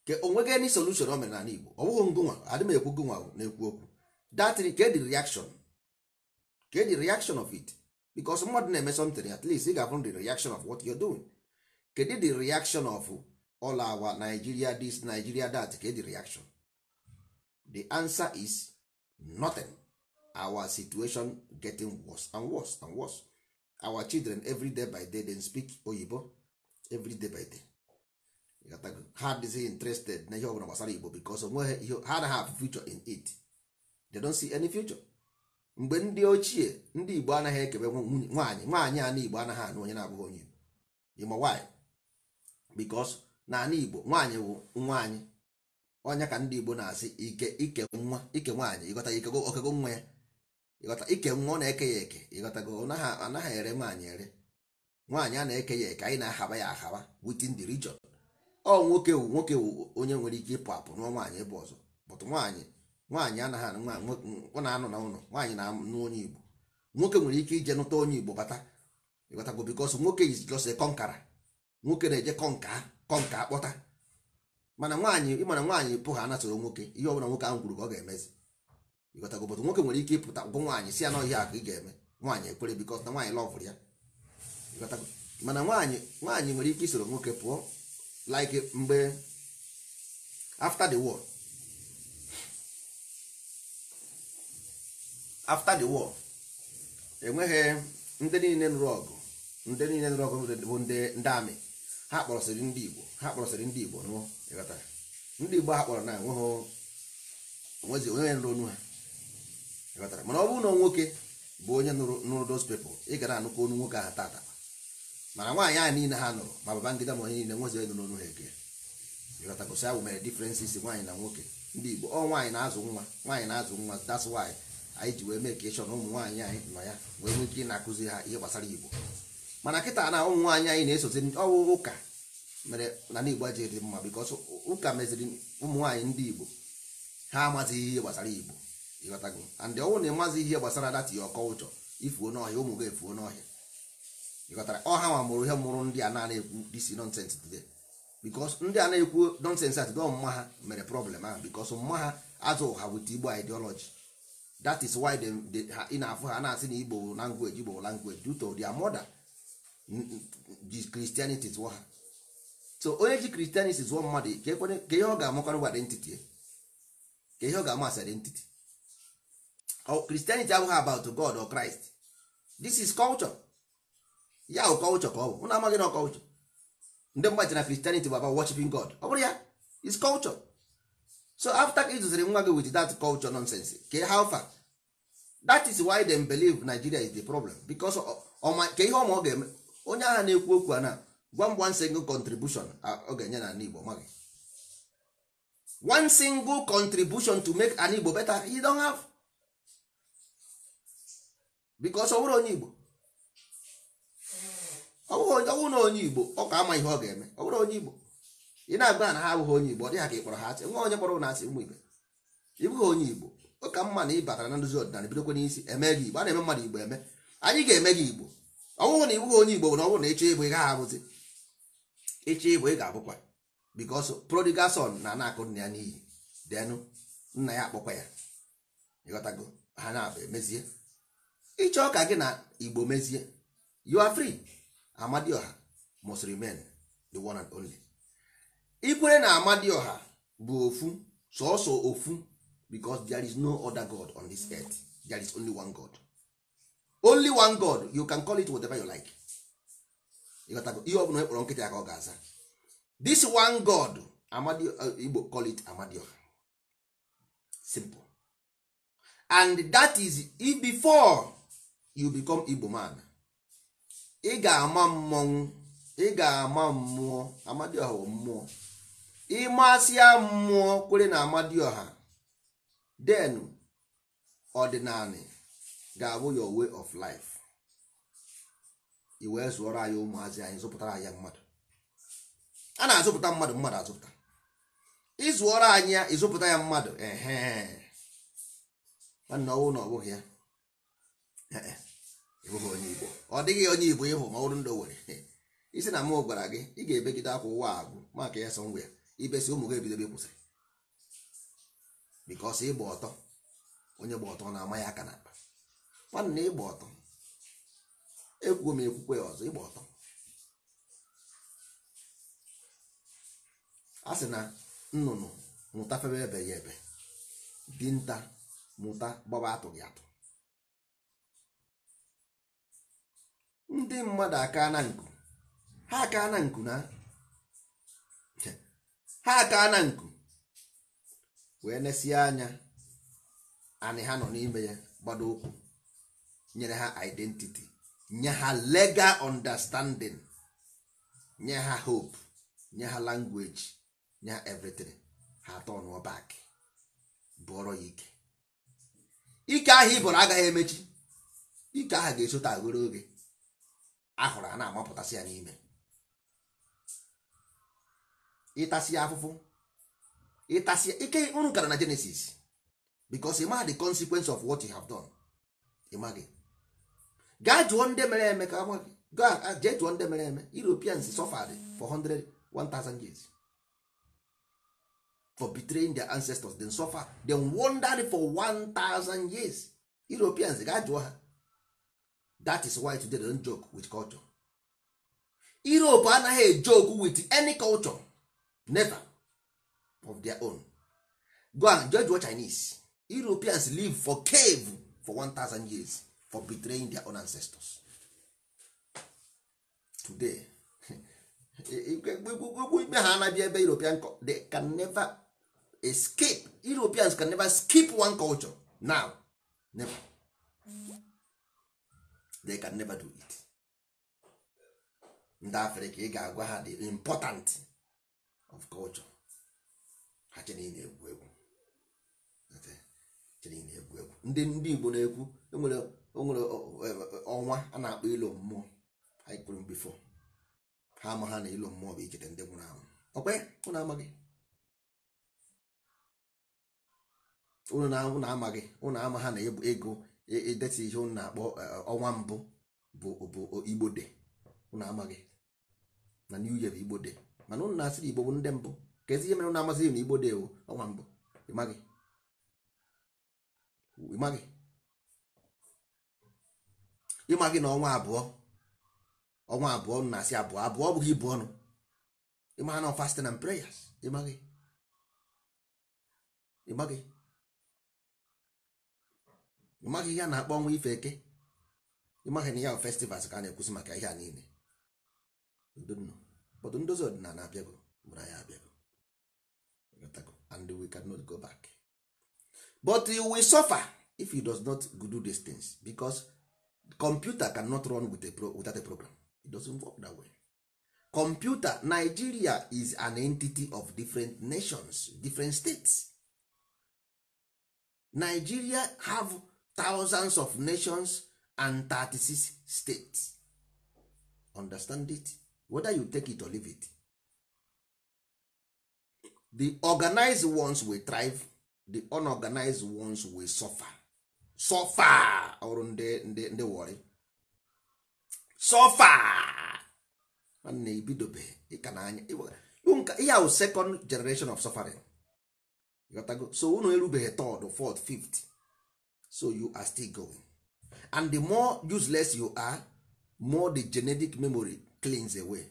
ke onwegị any solution o mere n'ala Igbo ọ bụghị ngụnwa adị m ekwu gụnwa na-ekwu okwu that ke reaction ke reaction of it because mmadụ na-eme something at least ị ga-afụ the reaction of what you're doing kedụ the reaction of all our Nigeria this Nigeria that ke reaction the answer is nothing our situation getting worse and worse and worse our children every day by day they speak oyibo every day by day ha dịghị interested na ihe ọbụla gbasara igbo because onweghị ihe ha anaghị have future in it they don't see any future mgbe ndị ochie ndị igbo anaghị ekebe nwaanyị nwaanyị ana igbo anaghị anụ onye na-abụghị onye igbo ịma why because na ana igbo nwaanyị bụ nwaanyị onye ka ndị igbo na-asị ike ike nwa ike nwaanyị ịghọta ike okego nwa ya ịghọta ike nwa ọ na-eke ya eke ịghọtago anaghị ere nwaanyị ere nwaanyị a na-eke ya eke anyị na-ahaba ya ahaba within the region ọ nwoke wu nwoke wu onye nwere ike ịpụ apụ nụọ nwaanyị ebe ọzọ bụtụ nwaanyị nwaanyị anaghị ọ na-anọ na ụlọ nwaanyị na-anụ onye Igbo nwoke nwere ike ije nụta onye Igbo bata ịghọtago because nwoke is just kọnkara nwoke na-eje kọnka kọnka kpọta mana nwaanyị ịmana nwaanyị pụgha anatụrụ nwoke ihe ọ nwoke ahụ kwuru ka ọ ga-emezi ịghọtago bụtụ nwoke nwere ike ịpụta ụgwọ nwaanyị si ya n'ọhịa akụ ị ga-eme nwaanyị ekwere bikọs na nwaanyị lọvụrụ ya ịghọtago mana nwaanyị nwaanyị nwere ike isoro nwoke pụọ like mgbe after the war after the war enweghị ndị niile nụrụ ọgụ ndị niile nụrụ ọgụ bụ ndị amị ha kpọrọsịrị ndị igbo ha kpọrọsịrị ndị igbo nụọ e ndị igbo ha kpọrọ na enweghị onwezi onweghị nụrụ onu ha mana ọ bụrụ na nwoke bụ onye nụrụ those people ị gara anụkọ onu nwoke ahụ tata mana nwaanyị ahụ niile ha nụrụ ma baba ma onye niile nwezighị nụrụ onu ha eke ịghọtagosi ahụ mere differences nwaanyị na nwoke ndị Igbo ọ nwaanyị na-azụ nwa nwaanyị na-azụ nwa that's why anyị ji wee mee ka ịchọ na ụmụ nwaanyị anyị nọ ya wee nwee ike ị na-akụzi ha ihe gbasara Igbo mana kịta na ụmụ nwaanyị anyị na-esozi ọwụ ụka mere na Igbo ji dị mma because ụka meziri ụmụ nwaanyị ndị Igbo ha amazighị ihe gbasara Igbo ịghọtago and ọnwụ na ịmazi ihe gbasara data ya ọkọụchọ ifuo n'ọhịa ụmụ gị efuo n'ọhịa ịghọtara ọha nwa mụrụ ihe mụrụ ndị a na-ekwu disi nonsens today because ndị a na-ekwu nonsens at dọ mma ha mere problem ahụ because mma ha azụ ụha wit igbo ideology that is why they ha ị na-afụ ha na-asị na igbo language igbo language due to their mother ji christianity zụọ ha so onye ji christianity zụọ mmadụ ka ihe ọ ga-amakọrọ identity ka ihe ọ ga-amasị identity Christianity abụghị about God or Christ this is culture ya o culture ka ọ bụ ụnụ amaghị na culture ndị mmadụ na Christianity bụ about worshiping God ọ bụrụ ya is culture so after ka ịzụziri nwa gị with that culture nonsense ke how far that is why dem believe Nigeria is the problem because ka ihe ọma ọ ga-eme onye agha na-ekwu okwu a na gwa one single contribution ọ ga-enye na ala Igbo maghị one single contribution to make an Igbo better he don't have because ọ onye Igbo ọ na onye Igbo ọ ka ama ihe ọ ga-eme ọ onye Igbo ị na-agba na ha abụghị onye Igbo ọ dịghị ka ịkpọrọ ha asị nwa onye kpọrọ na-asị ụmụ Igbo ịbụghị onye Igbo ọ ka mma na ị batara na nduzi ọdịnala bidokwa n'isi eme gị Igbo a na-eme mmadụ Igbo eme anyị ga-eme gị Igbo ọ na ịbụghị onye Igbo bụ na ọ na ịchọ ịbụ ị abụzi ịchọ ịbụ ị ga-abụkwa because prodigal na na nna ya n'iyi denụ nna ya akpọkwa ya ịghọtago ha na-abụ emezie ịchọ ka gị na igbo mezie you are free amadioha must remain the one and only ikwere na amadioha bụ ofu sọọsọ ofu because there is no other god on this earth there is only one god only one god you can call it whatever you like ihe ọ bụla ekpọrọ nkịta ka ọ ga-aza this one god uh, igbo call it amadioha simple and that is before you become igbo man ị ga-ama mmọnwụ ị ga-ama mmụọ amadioha bụ mmụọ ịmasịa mmụọ kwere na amadioha den ga-abụ your way of life i wee zụọrọ anyị ụmụazị anyị zụpụtara anyị mmadụ a na-azụpụta mmadụ mmadụ azụpụta ịzụọrọ anyị ya ịzụpụta ya mmadụ ehe nwanne ọnwụ na ọ bụghị ya onye igbo ọ dịghị onye igbo ịhụ ma ọrụ ndụ nwere isi na mụ gwara gị ị ga-ebegide akwa ụwa agwụ maka ya sọ ngwa ya ibesi ụmụ gị ebidobe kwụsịrị bikos ịgba ọtọ onye gba ọtọ na-ama ya aka n'akpa nwanne na ịgba ọtọ ekwuo m ekwukwe ya ọzọ ịgba ọtọ a sị na nnụnụ mụta febe ebe ya ebe dinta mụta gbaba atụghị atụ ndị mmadụ aka na nku ha aka na nku na ha aka na nku wee nesie anya anyị ha nọ n'ime ya gbado ụkwụ nyere ha identity nye ha legal understanding nye ha hope nye ha language nye ha everything ha atọ ọnụọ bụọrọ ya ike ike ahụ ị bụrụ agaghị emechi ike ahụ ga-esota agoro oge ahụrụ a na-amapụtasị ya n'ime ịtasị ya afụfụ ịtasị ike unu gara na Genesis because ịma the consequence of what you have done gị gaa jụọ ndị mere eme ka amaghị gaa jee jụọ ndị mere eme Europeans suffered for 100 years for betraying their ancestors dem suffer dem wandered for 1000 years Europeans gaa jụọ ha that is why today they don't joke with culture europe anaghị joke with any culture never of their own go and judge what chinese europeans live for cave for 1000 years for betraying their own ancestors today ime ha anabi ebe european they can never escape europeans can never skip one culture now never they can never do it ndị afrịka ị ga-agwa ha the important of culture ha chere na-egwu egwu egwu egwu ndị ndị igbo na-ekwu enwere e onwere ọnwa a na-akpọ ilo mmụọ anyị kwuru bifo ha ama ha na ilo mmụọ bụ icheta ndị nwụrụ anwụ ọkwe ụnụ amaghị ụnụ na-ama gị ụnụ ama ha na ego ideti ihe unu na-akpọ eh, ọnwa mbụ bụ bụ igbo de unu amaghị na new year bụ igbo de mana ụnụ na-asịrị igbo bụ ndị mbụ ka ezi ihe mere unu amasị na igbo de bụ ọnwa mbụ ịmaghị ịmaghị ịmaghị na ọnwa abụọ ọnwa abụọ na-asị abụọ abụọ ọ bụghị ibu ọnụ ịmaghị na fast and prayers ịmaghị ịmaghị ịmaghị ihe a na-akpọ ọnwa ife eke ịmaghị na ya festivals ka a na-ekwusi maka ihe a niile but ndozi ọdịnala abịago mụra ya abịago and we cannot go back but you will suffer if you does not do these things because computer cannot run with a pro without a program it doesn't work that way computer Nigeria is an entity of different nations different states Nigeria have thousands of nations and 36 states understand it whether you take it or leave it the organized ones will thrive the unorganized ones will suffer suffer ọrụ ndị ndị ndị wọrị suffer na ebidobe ịka na anya ihe ahụ second generation of suffering so unu erubeghị third fourth fifth so you are still going and the more useless you are more the genetic memory cleans away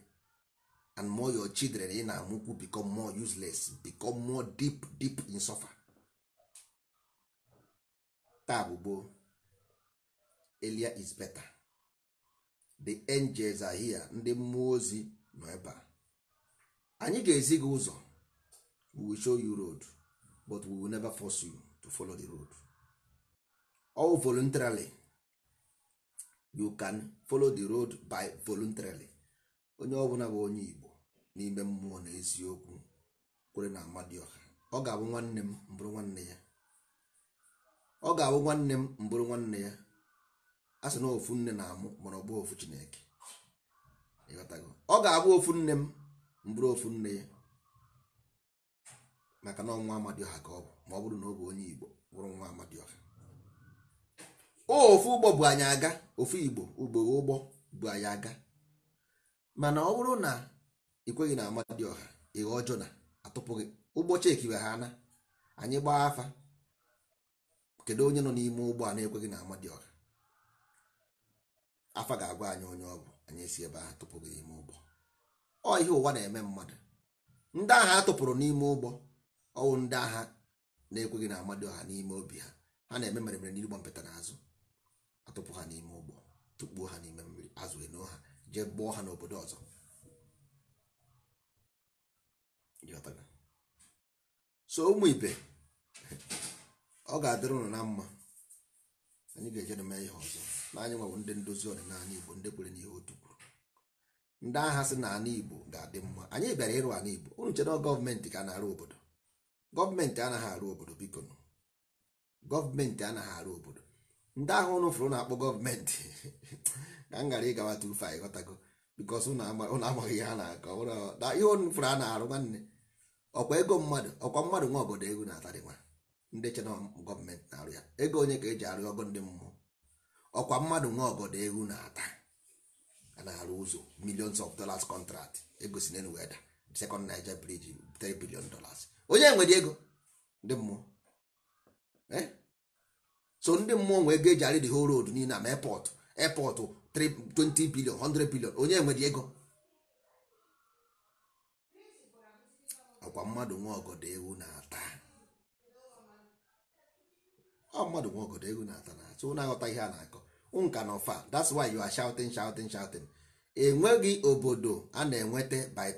and more your children ị na-amụkwu become more useless become more deep deep in suffer taa bụ elia is better the angels are here ndị mmụọ ozi nọ ebe a anyị ga-ezi gị ụzọ we will show you road but we will never force you to follow the road. all voluntarily you can follow the road by voluntarily onye ọbụla bụ onye Igbo n'ime mmụọ na eziokwu kwere na Amadioha ọ ga-abụ nwanne m mbụrụ nwanne ya ọ ga-abụ nwanne m mbụrụ nwanne ya a sị na ofu nne na-amụ mana ọ bụ ofu Chineke ọ ga-abụ ofu nne m mbụrụ ofu nne ya maka na ọnwa Amadioha ka ọ bụ ma ọ bụrụ na ọ bụ onye Igbo bụrụ nwa Amadioha ofu ụgbọ bụ anyị aga ofu igbo ugbo ụgbọ bụ anyị aga mana ọ bụrụ na ikweghị na ọha ịghọ ọjọọ na atụpụghị ụgbọ chekiwe ha na anyị gbaa afa kedu onye nọ n'ime ụgbọ a na-ekweghị na amadioha afa ga-agwa anyị onye ọ bụ anyị esi ebe ahụ tụpụghị n'ime ụgbọ ọ ihe ụwa na-eme mmadụ ndị agha atụpụrụ n'ime ụgbọ ọwụ ndị agha na-ekweghị na ọha n'ime obi ha ha na-eme mere mere n'igbo mpụtara azụ atụpụ ha n'ime ụgbọ tụkpuo ha n'ime mmiri azụrụ eno ha jee gbuo ha n'obodo ọzọ so ụmụ ibe ọ ga-adịrị ụnụ na mma anyị ga-eje mee ihe ọzọ n'anya anyị ndị ndozi ọdịnala igbo ndị kwere n'ihe otu kwuru ndị agha sị na ala igbo ga-adị mma anyị bịara ịrụ ala igbo unu chere gọọmenti ka na-arụ obodo gọọmenti anaghị arụ obodo biko gọọmenti anaghị arụ obodo ndị ahụ ụnụ fụrụ na-akpọ gọọmenti ka m gara ịgawa 25 ghọtago bikos ụnụ amaghị ihe ha na-akọ ihe ụnụ fụrụ a na-arụ nwanne ọkwa ego mmadụ ọkwa mmadụ nwa obodo ego na-atarị nwa ndị chena gọọmenti na-arụ ya ego onye ka eji arụ ọgụ ndị mmụọ ọkwa mmadụ nwa obodo ego na-ata a na-arụ ụzọ millions of dollars contract egosi si n'elu weda second Niger bridge 3 billion dollars onye nwere ego ndị mmụọ eh? so ndị mmụọ nwee ego eji arị the whole road niile ma airport airport 20 bilion 100 bilion onye nwere ego ọkwa mmadụ nwa ọgọdọ ewu na-ata ọ mmadụ nwa ọgọdọ ewu na-ata na atụ na-aghọta ihe a na-akọ nka na ọfa that's why you are shouting shouting shouting enweghị obodo a na-enweta by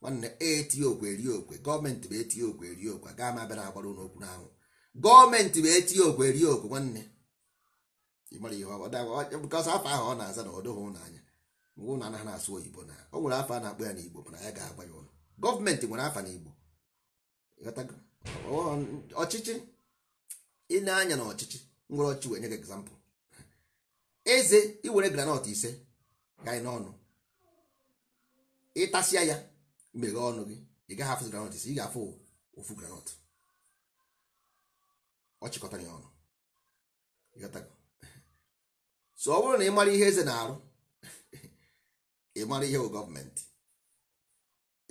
nwanne eti okwe eri okwe gọọmenti bụ eti okwe eri okwe gaa ma bịa na-agbara ụlọ n'anwụ gọọmenti wee tinye okwu erie okwu nwanne afọ ahụ ọ na-aza na ọdụghị ụnanya mgbe ụlọ anaghị asụ oyibo na o nwere afọ a na-akpọ ya n'igbo mana ya ga-agba ya ụlọ gọọmenti nwere afọ n'igbo ọchịchị ị na-anya na ọchịchị nwere ọchị wee nye gị egzampụl eze iwere granọt ise ga n'ọnụ ịtasịa ya meghee ọnụ gị ị gaghị afụ granọt ise ị ga-afụ ofu granọt ọ chịkọtara ya ọnụ so ọ bụrụ na ị mara ihe eze na-arụ ị mara ihe bụ gọọmenti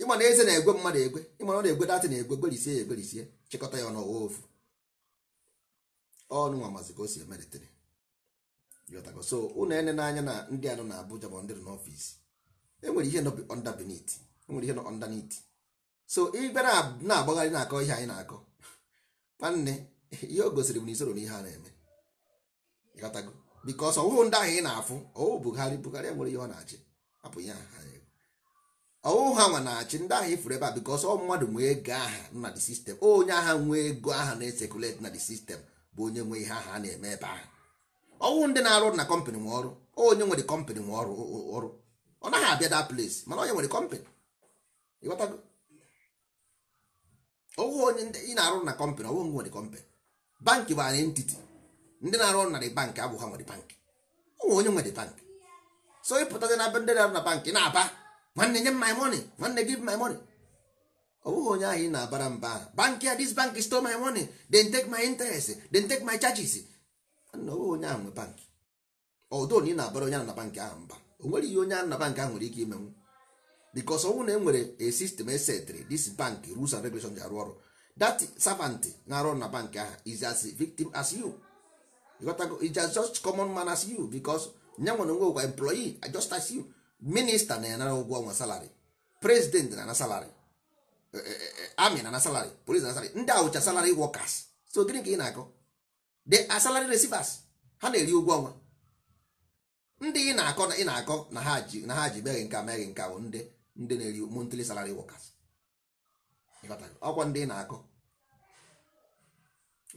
ịma na eze na-egwe mmadụ egwe ịma na ọ na-egwe datị na-egwe gwerisie ya egwerisie chịkọta ya ọnụ ọwa ofu ọnụ nwa mazi ka o si emelitere so ụnụ ene n'anya na ndị anụ na Abuja ma ndị n'ọfisi enwere ihe nọ underbeneath enwere ihe nọ underneath so ịbịa na-agbagharị na-akọ ihe anyị na-akọ nwanne ihe o gosiri m na isoro n'ihe a na-eme ịghọtago bikos ndị ahụ ị na-afụ ọwụ Buhari Buhari e nwere ihe ọ na-achị hapụ ya ọwụhụ ha nwa na-achị ndị ahụ ifuru ebe a bikos ọ mmadụ nwee ego aha na the sistem onye agha nwee ego aha na-esekuleti na the sistem bụ onye nwe ihe aha a na-eme ebe ahụ ọwụ ndị na-arụ na kọmpanị nwe ọrụ onye nwere kọmpanị nwe ọrụ ọrụ ọ naghị abịa da place mana onye nwere kọmpanị ịghọtago ọwụhụ onye ị na-arụ na kọmpanị ọwụhụ nwere kọmpanị banki bụ anyị ntiti ndị na-arụ ọrụ na dị bankị abụghị nwere bankị ụmụ onye nwere bankị so ịpụtazi na ndị na-arụ na bankị na-aba nwanne nye m my money nwanne give my money ọ bụghị onye ahụ ị na-abara mba bankị a this bank stole my money then take my interest then take my charges na ọ bụghị onye ahụ nwe bankị ọdụ na na-abara onye ahụ na bankị ahụ mba o nwere ihe onye ahụ na bankị ahụ nwere ike imenwu because ọnwụ na e nwere a system esetri this bank rules and regulations ji arụ ọrụ that servant na-arụ na bank ahụ is as victim as you is just common man as you because nya nwere onwe ụgwa employee ah, just as you minister na ya nara ụgwọ ọnwa salary president na na salary eh, eh, eh, army na na salary police na salary ndị awụcha salary workers so gịnị ka ị na-akọ The salary receivers ha na-eri ụgwọ ọnwa ndị ị na-akọ na ị na-akọ na ha ji na ha ji meghị nka meghị nka bụ ndị ndị na-eri monthly salary workers ọkwa ndị ị na-akọ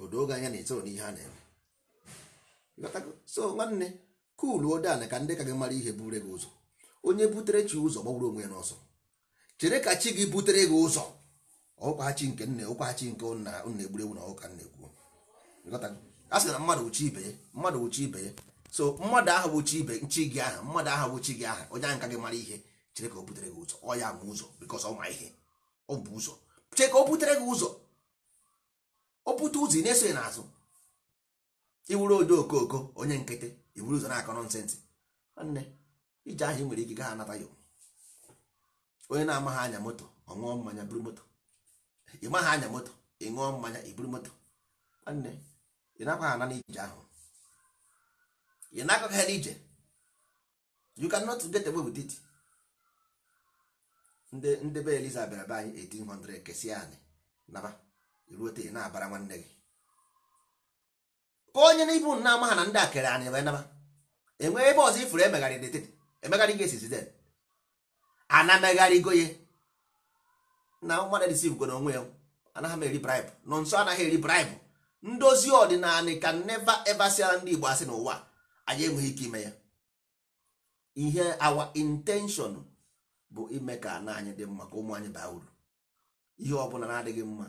odo oge anya na-etoro n'ihe a na-eme so nwanne kuluo dan ka ndị ka gị mara ihe bure gị ụzọ onye butere chi ụzọ gbagburu onwe ya n'ọsọ chere ka chi gị butere gị ụzọ ọkwa chi nke nne ọkwa chi nke nna nna egburegbu na ọka nna ekwuo a sị na mmadụ uchi ibe mmadụ uchi ibe so mmadụ ahụ bụ chi ibe nchi gị aha mmadụ ahụ bụ chi gị aha onye ahụ ka gị mara ihe chere ka o butere gị ụzọ ọ ya ma ụzọ because ọ ma ihe ọ bụ ụzọ chere ka o butere gị ụzọ o pụta ụzọ ị na-eso n'azụ iwuru odo okoko onye nkịtị iwuru ụzọ na-akọrọ nsentị nwanne ije ahụ ị nwere ike ha anata ya onye na-amaghị anya moto ọ ṅụọ mmanya buru moto ị maghị anya moto ị ṅụọ mmanya iburu moto nwanne ị nakwa ha ana n'ije ahụ ị na nakọghị ha n'ije you can cannot get away with it ndị be eliza bịara be anyị 1800 Kesi anyị naba ruote na-abara nwanne gị ka onye na ibu na amaha na ndị a kere anyị wee naba enwee ebe ọzọ ifuru emegharị detete emegharị ga esizi den ana na mmadụ disiv go onwe ya anaghị m eri braibụ nọ nso anaghị eri braibụ ndozi ọdịnala ka neva eva ndị Igbo asị n'ụwa anyị enweghị ike ime ya ihe awa intenshọn bụ ime ka ana anyị dị mma ka ụmụ anyị baa uru ihe ọ bụla na-adịghị mma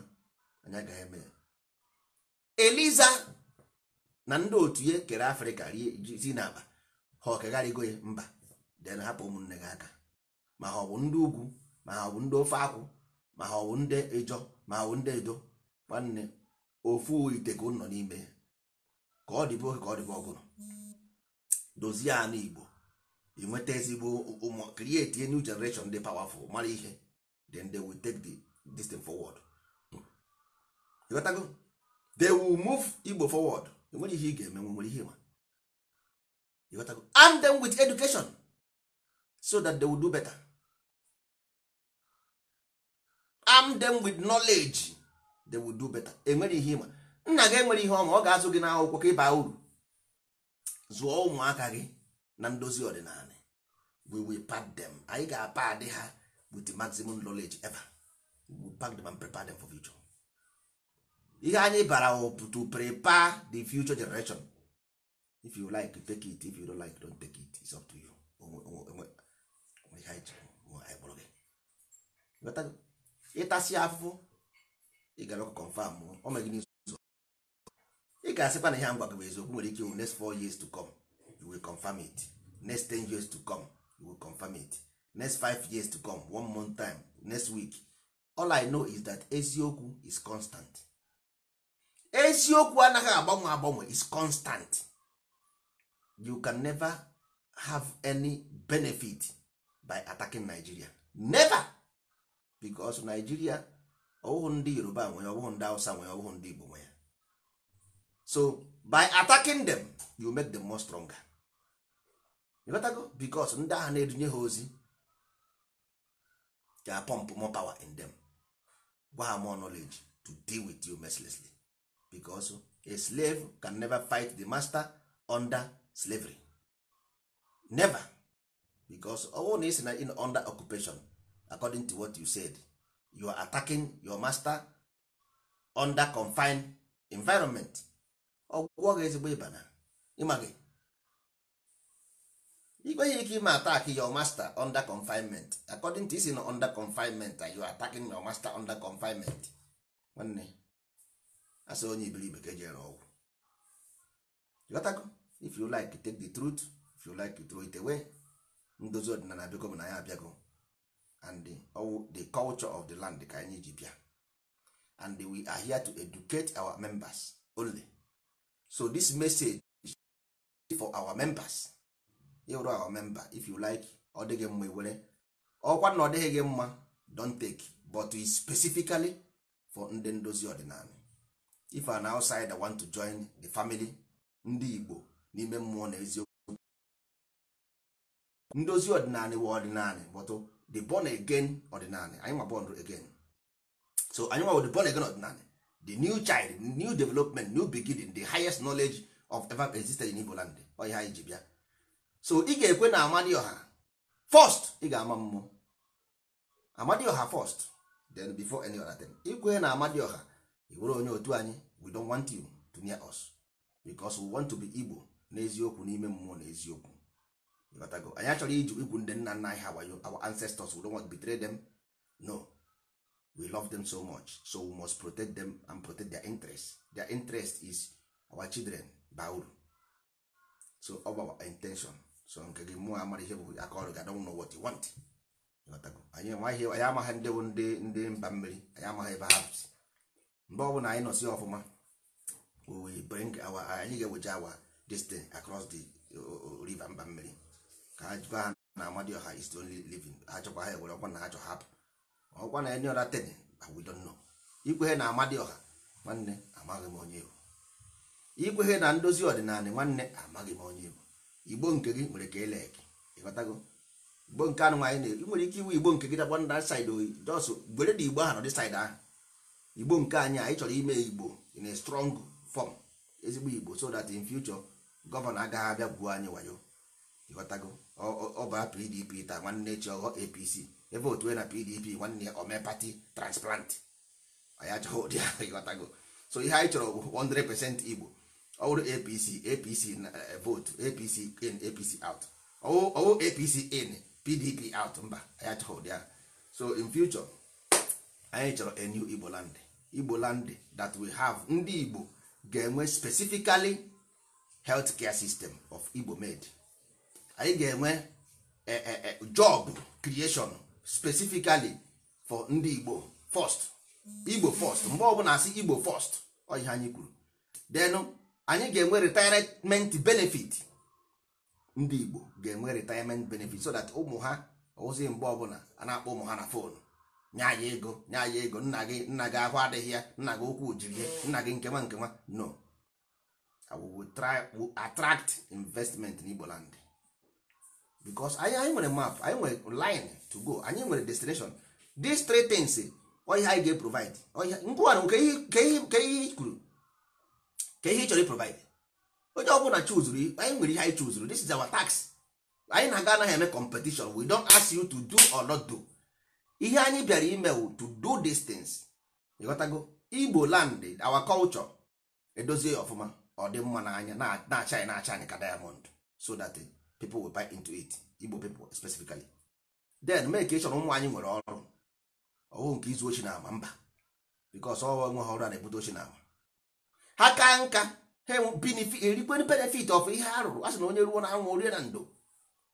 anya agaghị eme ya eliza na ndị otu ya kere afrịka si n'akpa ha ọkegharịgo ya mba den hapụ ụmụnne gị aka ma ha ọ bụ ndị ugwu ma ha ọ bụ ndị ofe akwụ ma ha ọ bụ ndị ịjọ ma ha ọ bụ ndị edo nwanne ofu ite ka nọ n'ime ka ọ dịbe oge ka ọ dịbe ọgụrụ dozie anụ igbo inweta ezigbo ụmụ create a new dị powerful mara ihe dị ndị will take the this ịghọtago they will move igbo forward enwere ihe ị ga-eme nwere ihe ịghọtago arm them with education so that they will do better arm them with knowledge they will do better enwere ihe ịma nna gị enwere ihe ọma ọ ga-azụ gị n'akwụkwọ ka ịba uru zụọ ụmụaka gị na ndozi ọdịnala we will pack them anyị ga-apad ha with the maximum knowledge ever we will pack them and prepare them for future ihe anyị bara to prepare the future generation if you like take it if you don't like don't take it it's up to you ịtasị afụfụ ị gara ọkụ confam ọ ma gị n'ụzọ ị ga-asịkwa na ihe ngwa gị bụ eziokwu nwere ike next four years to come you will confirm it next ten years to come you will confirm it next five years to come one month time next week all i know is that eziokwu is constant eziokwu anaghị agbanwe agbanwe is constant you can never have any benefit by attacking Nigeria never because Nigeria ọwụhụ ndị Yoruba nwere ọwụhụ ndị Hausa nwere ọwụhụ ndị Igbo nwere so by attacking them you make them more stronger ịghọtago because ndị agha na-edunye ha ozi ga pump more power in them gwa ha more knowledge to deal with you mercilessly because a slave can never fight the master under slavery never because ọ na isi na in under occupation according to what you said you are attacking your master under confined environment ọgwụgwọ gị ezigbo ịba na ịma gị ike ime attack your master under confinement according to isi na under confinement you are attacking your master under confinement nwanne asị onye ibe ka eji ere ọgwụ ghọtago if you like take the truth if you like to throw it away ndozi ọdịnala biko bụ na ya abịago and the, culture of the land ka anyị ji bịa and we are here to educate our members only so this message is for our members ịwụrụ our member if you like ọ dịghị mma iwere. ọkwa na ọ dịghị gị mma don take but e specifically for ndị ndozi ọdịnala if an outsider want to join the family ndị Igbo n'ime mmụọ na eziokwu ndozi ọdịnala wa ọdịnala but the born again ọdịnala anyị born again so anyị nwa the born again ọdịnala the new child new development new beginning the highest knowledge of ever existed in Igbo land ọ ha anyị ji bịa so ị ga-ekwe na ọha first ị ga-ama mmụọ ọha first then before any other thing ikwe na ọha. i were onye otu anyị we don't want you to near us because we want to be igbo n'eziokwu n'ime mmụọ na eziokwu anyị achọrọ iji igwu ndị nna nna anyị our ancestors we don't want to betray them no we love them so much so we must protect them and protect their interest their interest is our children bauru so ọ our intention so nke gị mụọ amara ihe bụ aka ọrụ gị adọnwụ know what want anyị amaghị ndị bụ ndị mba mmiri anyị amaghị ebe ha si mgbe ọ bụ na anyị nọsi ọfụma we bring our anyị ga-eweje awa destiny across the river mba mmiri ka ha jụba ha na amadioha is only living ha chọkwa ha ewere ọkwa na ha chọ hapụ ọkwa na enye ọra ten we don't know ikwehe na ọha nwanne amaghị m onye bụ ikwehe na ndozi ọdịnala nwanne amaghị m onye bụ igbo nke gị nwere ka ele gị ịghọtago igbo nke anụ nwaanyị na-eri nwere ike iwu igbo nke gị dakwa nda saịdị oyi jọsụ gbere dị igbo ahụ nọdị saịdị ahụ igbo nke anyị anyị chọrọ ime igbo in a strong form ezigbo igbo so that in future gọvanọ agaghị abịa gwuo anyị wayo ịghọtago ọba pdp taa nwanne chi ọghọ apc ebe otu e na pdp nwanne omepati transplant anyị achọghị ụdị ahụ ịghọtago so ihe anyị chọrọ bụ 100% igbo ọwụrụ apc apc eh, vote apc in apc out ọwụ apc in pdp out mba anyị achọghị ụdị ahụ so in future anyị chọrọ a new igbo land igbo land that we have ndị igbo ga-enwe specifically health care system of igbo made anyị ga-enwe e, e, e, job creation specifically for ndị igbo first igbo first mgbe ọbụla asị igbo first ọ anyị kwuru then anyị ga-enwe retirement benefit ndị igbo ga-enwe retirement benefit so that ụmụ ha ozi mgbe ọbụla a na-akpọ ụmụ ha na fonu nye anyị ego nye anyị ego nna gị nna gị ahụ adịghị ya nna gị okwu jiri ya nna gị nkewa nkewa no i will try attract investment in Igbo because anyị anyị nwere map anyị nwere line to go anyị nwere destination these three things oihe anyị ga-eprovide ngwụwanụ ke ihe kwuru ka ihe ị chọrọ iprovide onye ọ bụla chuzuru anyị nwere ihe anyị chuzuru this is our tax anyị na-aga anaghị eme competition we don't ask you to do or not do ihe anyị bịara ime to do distance ịghọtago igbo land our culture edozie ọfụma ọ dị mma n'anya na-acha anyị na-acha anyị ka diamond so that eh, people will buy into it igbo people specifically then make ka ị chọrọ ụmụ anyị nwere ọrụ ọwụ nke izu ochi na ama mba bikos ọwa nwe ha ọrụ a na-ebute ochi na ama ha ka nka ha erikwe benefit of ihe a rụrụ a na onye ruo na anwụ orie na ndo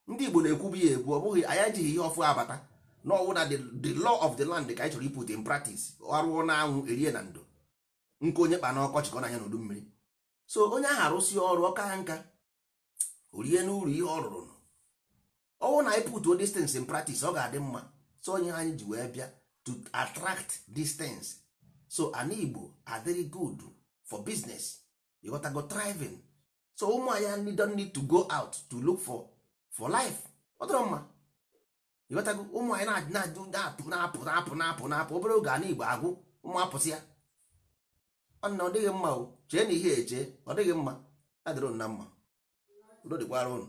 ndị igbo na-ekwu bụ ya ekwu ọ bụghị anya ejighị ihe ọfụ abata na ọwụ na the law of the land ka anyị chọrọ iput in practice arụọ na anwụ erie na ndo nke onye kpa na ọkọchị ka ọ na-anya n'udu mmiri so onye ahụ arụsị ọrụ ọka nka orie n'ụlọ ihe ọ rụrụ ọwụ na anyị o distance in practice ọ ga-adị mma so onye anyị ji wee bịa to attract distance so ana igbo are very good for business you gotta so ụmụ anya don't need to go out to look for for life ọ dịrọ mma ịghọtago ụmụ anyị na-ajụ na-apụ na-apụ na-apụ na-apụ na obere oge ana igbo agwụ ụmụ apụsị ya na ọ dịghị mma o chee na ihe eche ọ dịghị mma adịrị na mma udo dịkwara ụnụ